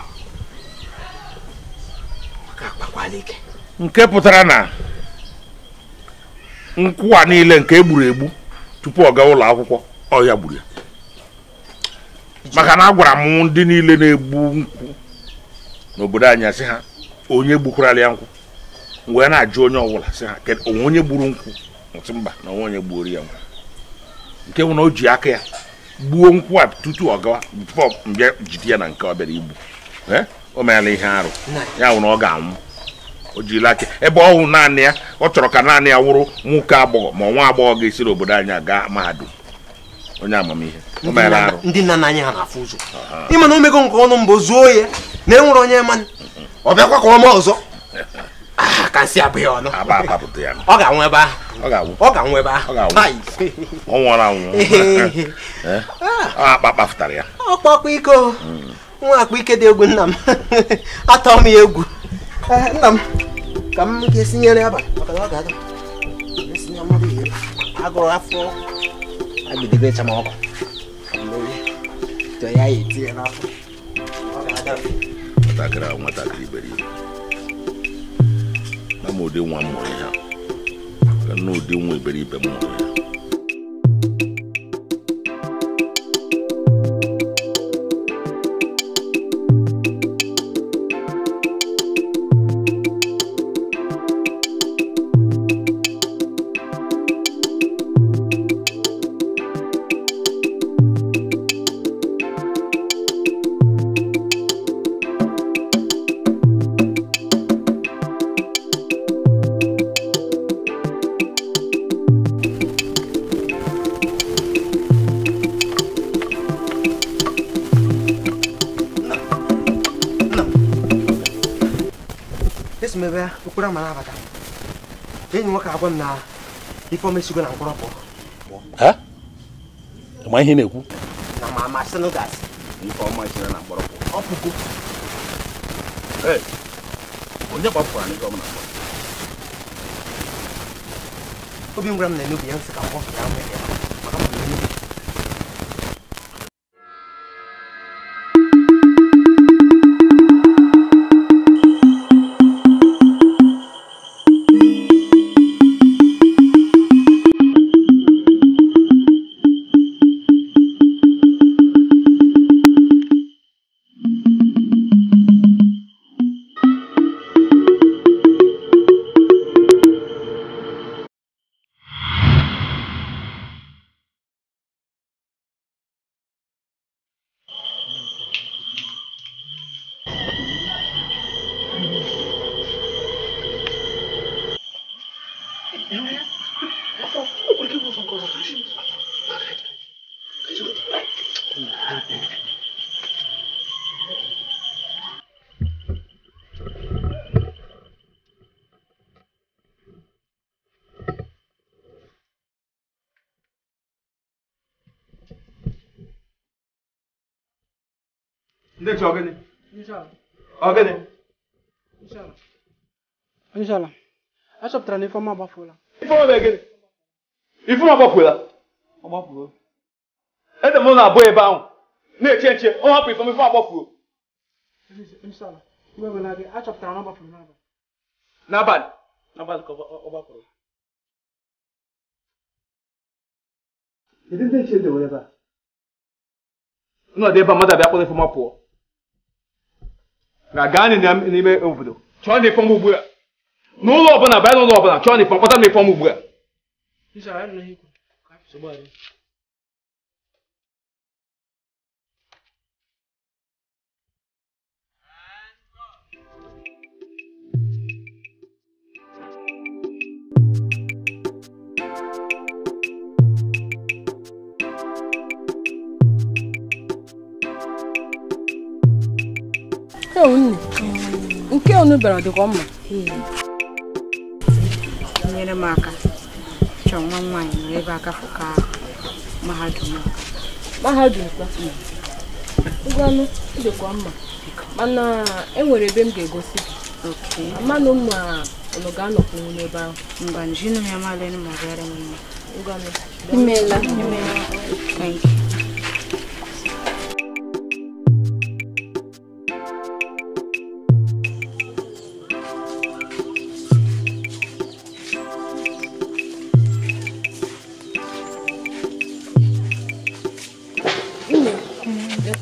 a nke pụtara na nkwụ a niile nke e gburu egbu tupu ọ gaa ụlọ akwụkwọ ọhịa gburu ya maka na agwara m ndị niile na-egbu nkwụ n'obodo anyị sị ha onye gbukwara ya nkwụ wee na-ajụ onye ọbụla sị ha onwe onye gburu nkwụ ntụ mba na onwe onye gbuoro ya nkwụ nke na o ji aka ya gbuo nkwụ a tutu ọ gawa mbịa jide ya na nke ọ bịara igbu o meela ihe arụ ya na ọ ga-anwụ o jiri aka ebe ọ hụ naanị ya ọ chọrọ ka naanị ya wụrụ nwoke agbọghọ ma nwa agbọghọ ga-esi n'obodo anya ga mahadum onye amamihe o ndị nna anyị ha na-afụ ụzọ ịma na nke ọnụ mbụ zuo ya na e onye mmanụ ọ bịakwa ka ọma ọzọ ah, ka abụghị ọnụ ọ ga-anwụ ebe ahụ ọ ga-anwụ ebe ahụ anwụ eh? ah. akpa kpafụtara ya ọkpakpa iko hmm. nwa m ya egwu Eh, nna m ka m ga-esinyere abalị maka na ọ ga-ada esinye mmadụ ihe agụrụ afọ agidibe chama ọkụ tọ ya ya etinye n'afọ ọ ga-ada nwatakịrị ahụ nwatakịrị iberibe na m ụdị nwa m mụrụ ya na ụdị nwa iberibe m mụrụ ya esi m ebe okporo amara abata enyi nwoke agwa m na ifeọma esigo na mkpọrọ pụọ ma ihe na-ekwu na ma amasị na gasị ifeọma esiro na mkpọrọ pụọ ọ pụgo onye gbapụrụ anyị gọmna obi ngwara m na enugwu ya nsị ka mkpọ ya nwere ya batara n'ife ọma ede na-abụ ebe ahụ na-eche nche ọ hapụ ifeọma ifeọma agbafuo na ọ gbafuru n'abalị ọ ebe a mmadụ abịa kwụrụ ifeọma pụọ ga-aga anyị n'ime obodo chọọ na ifeọma ugbu a n'ụlọ ọbụla bịa n'ụlọ ọbụla chọọ n'ịpọ kpọta m ịpọ m ugbu a nke onu bịara dịkwa mma nyere m aka chọọ nwa nwaanyị nọrọ ebe aka fụka mahadum mahadum hmm. ngwanụ dịkwa mma mana enwere ebe m ga-egosi gị mmanụ mma ụnụ ga-anọkwu nwunye ebe ahụ mba njinu ya malenu ma bịara m mma ngwanụ imeela imeela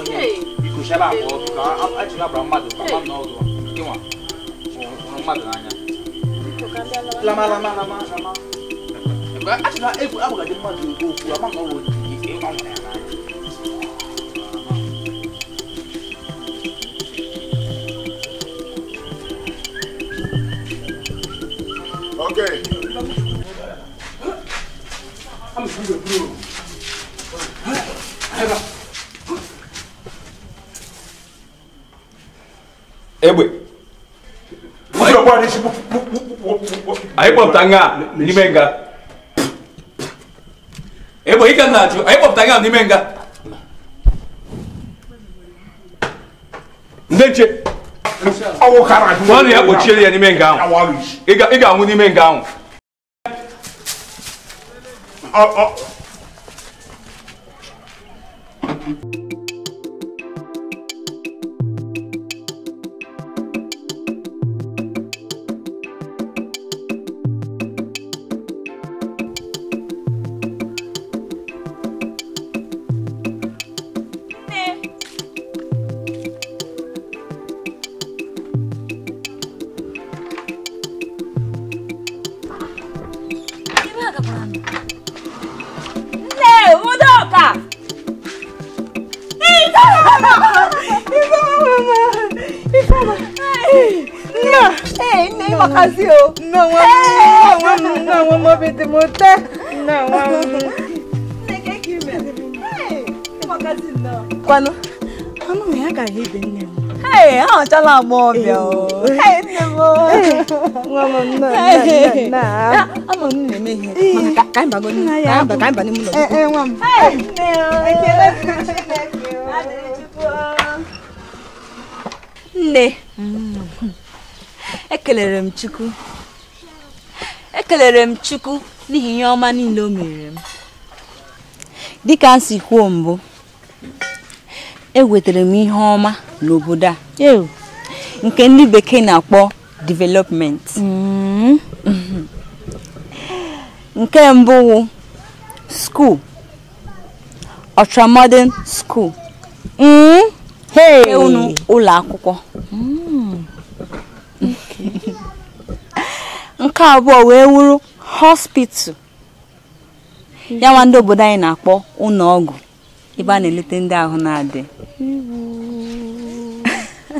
onye ikụchala abụọ ka achịla bara mmadụ ka mmadụ na ọdụ ịnwa hụrụ mmadụ n'anya lamalama lama lama achịla egwu abụgadị mmadụ okwu ama na ọrụ bobutanga nimenga ebo ikanatyo ayibobutanga nimenga ndenche wani yakochele ya nimenga ahu igangu nimenga ahu te montar. Não, Você quer que mesmo? Ei, não. Quando? Eu não me agarrei bem, né? Hey, hao cho là mồm biểu. Hey, nè mồm. Ngô mồm nè, nè, nè. Á, mồm nè mê hì. Mà cả cái bà con, cả bà cái bà nè mồm. Ê, ê, mồm. Hey, nè. Ai kia lên, ai kia lên. Ai kia lên. Nne. Ekelere m Chukwu. ekelere m chukwu n'ihi ihe ọma niile o mere m dịka m si kwuo mbụ ewetara m ihe ọma n'obodo a nke ndị bekee na-akpọ development mm-hmm. nke mbụ wụ skuul ultramodern school mm-hmm. unu ụlọ akwụkwọ mm-hmm. nke abụọ wee wuru hospital ya nwa ndị obodo anyị na-akpọ ụlọ ọgwụ ebe a na-eleta ndị ahụ na-adị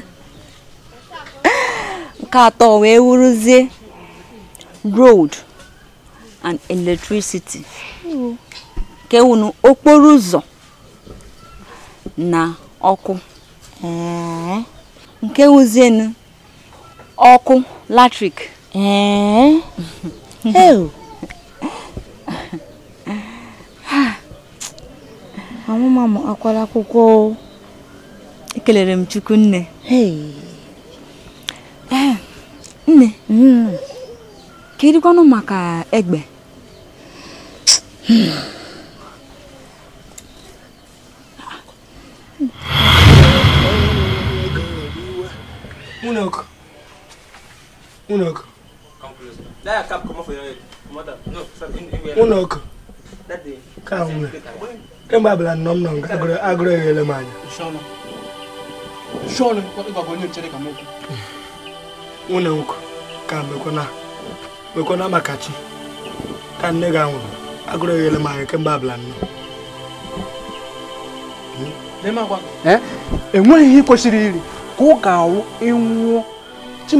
nke atọ wee wuruzie road and electricity nke wunu okporo ụzọ na ọkụ nke wuzienu ọkụ latrik amụma m akwara akwụkwọ ekelere m chukwu nne ah, nne hmm. ka irikwanụ maka egbe hmm. Unok. Unok. that ka kemgbe abala nnọọ m nọ nke agụrụ eghele m anya nkụ ka mekwana mekwana maka chi ka nne gị anwụrụ agụrụ eghele m anya kemgbe abala nnọọ enweghị ihe kwesịrị eh? e iri ka ọ ga-awụ ịnwụọ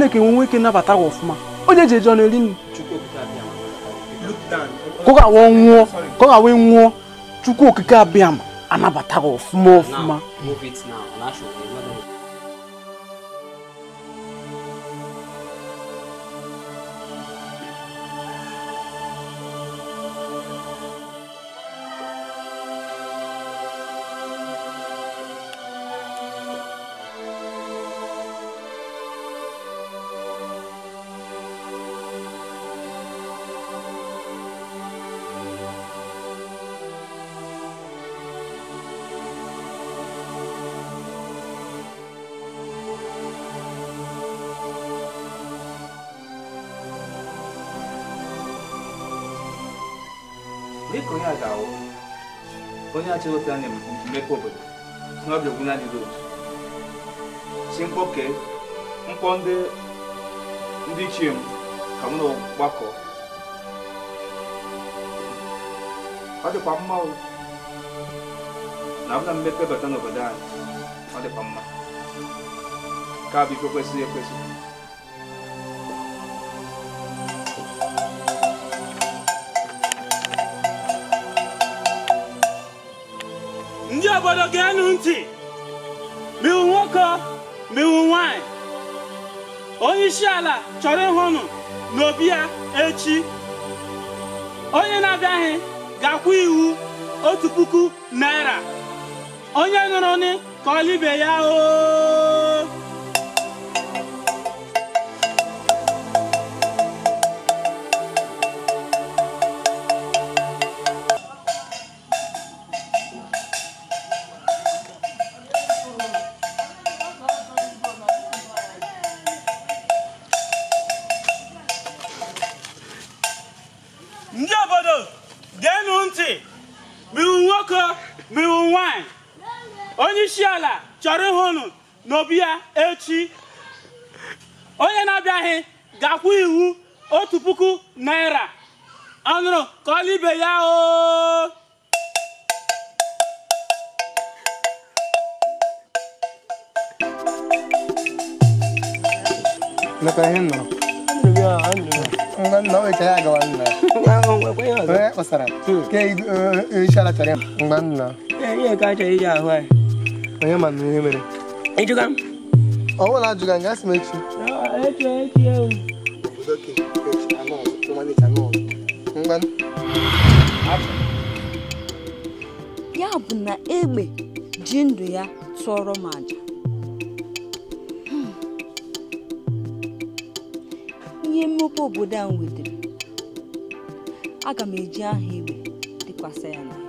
e nwoke e nabata gị ọfụma ó lè jẹjọ lè rí ni. kókà wọ́n ń wọ́n kókà chukwu okike abiyam anabataghị ọfụma ọfụma. move it now, achịghọta a maka mmekọ obodo na ọbịa ogwu na-adịghị otu si mkpọ kee mkpọ ndị ichie m ka m na-gbakọ ọ dịkwa na na mmepe bata n'obodo anyị ọ dịkwa mma bụ ife kwesịrị ekwesị obodo ga ntị miwu nwoke miwu nwanyị onye isi ala chọrọ ịhụnụ n'obi ya echi onye na-abịaghị ga iwu otu puku naira onye nụrụ nị ka ọlibe ya oo Ọ chọrọ iji ahụ anyị onye ma na ihe mere ịjụga m ọ bụrụ na ajụga m m echi ya bụ na egbe ji ndụ ya tụọrọ m aja hmm. ihe mmepe obodo a nwetara aga m eji aha igwe dịkwasị ya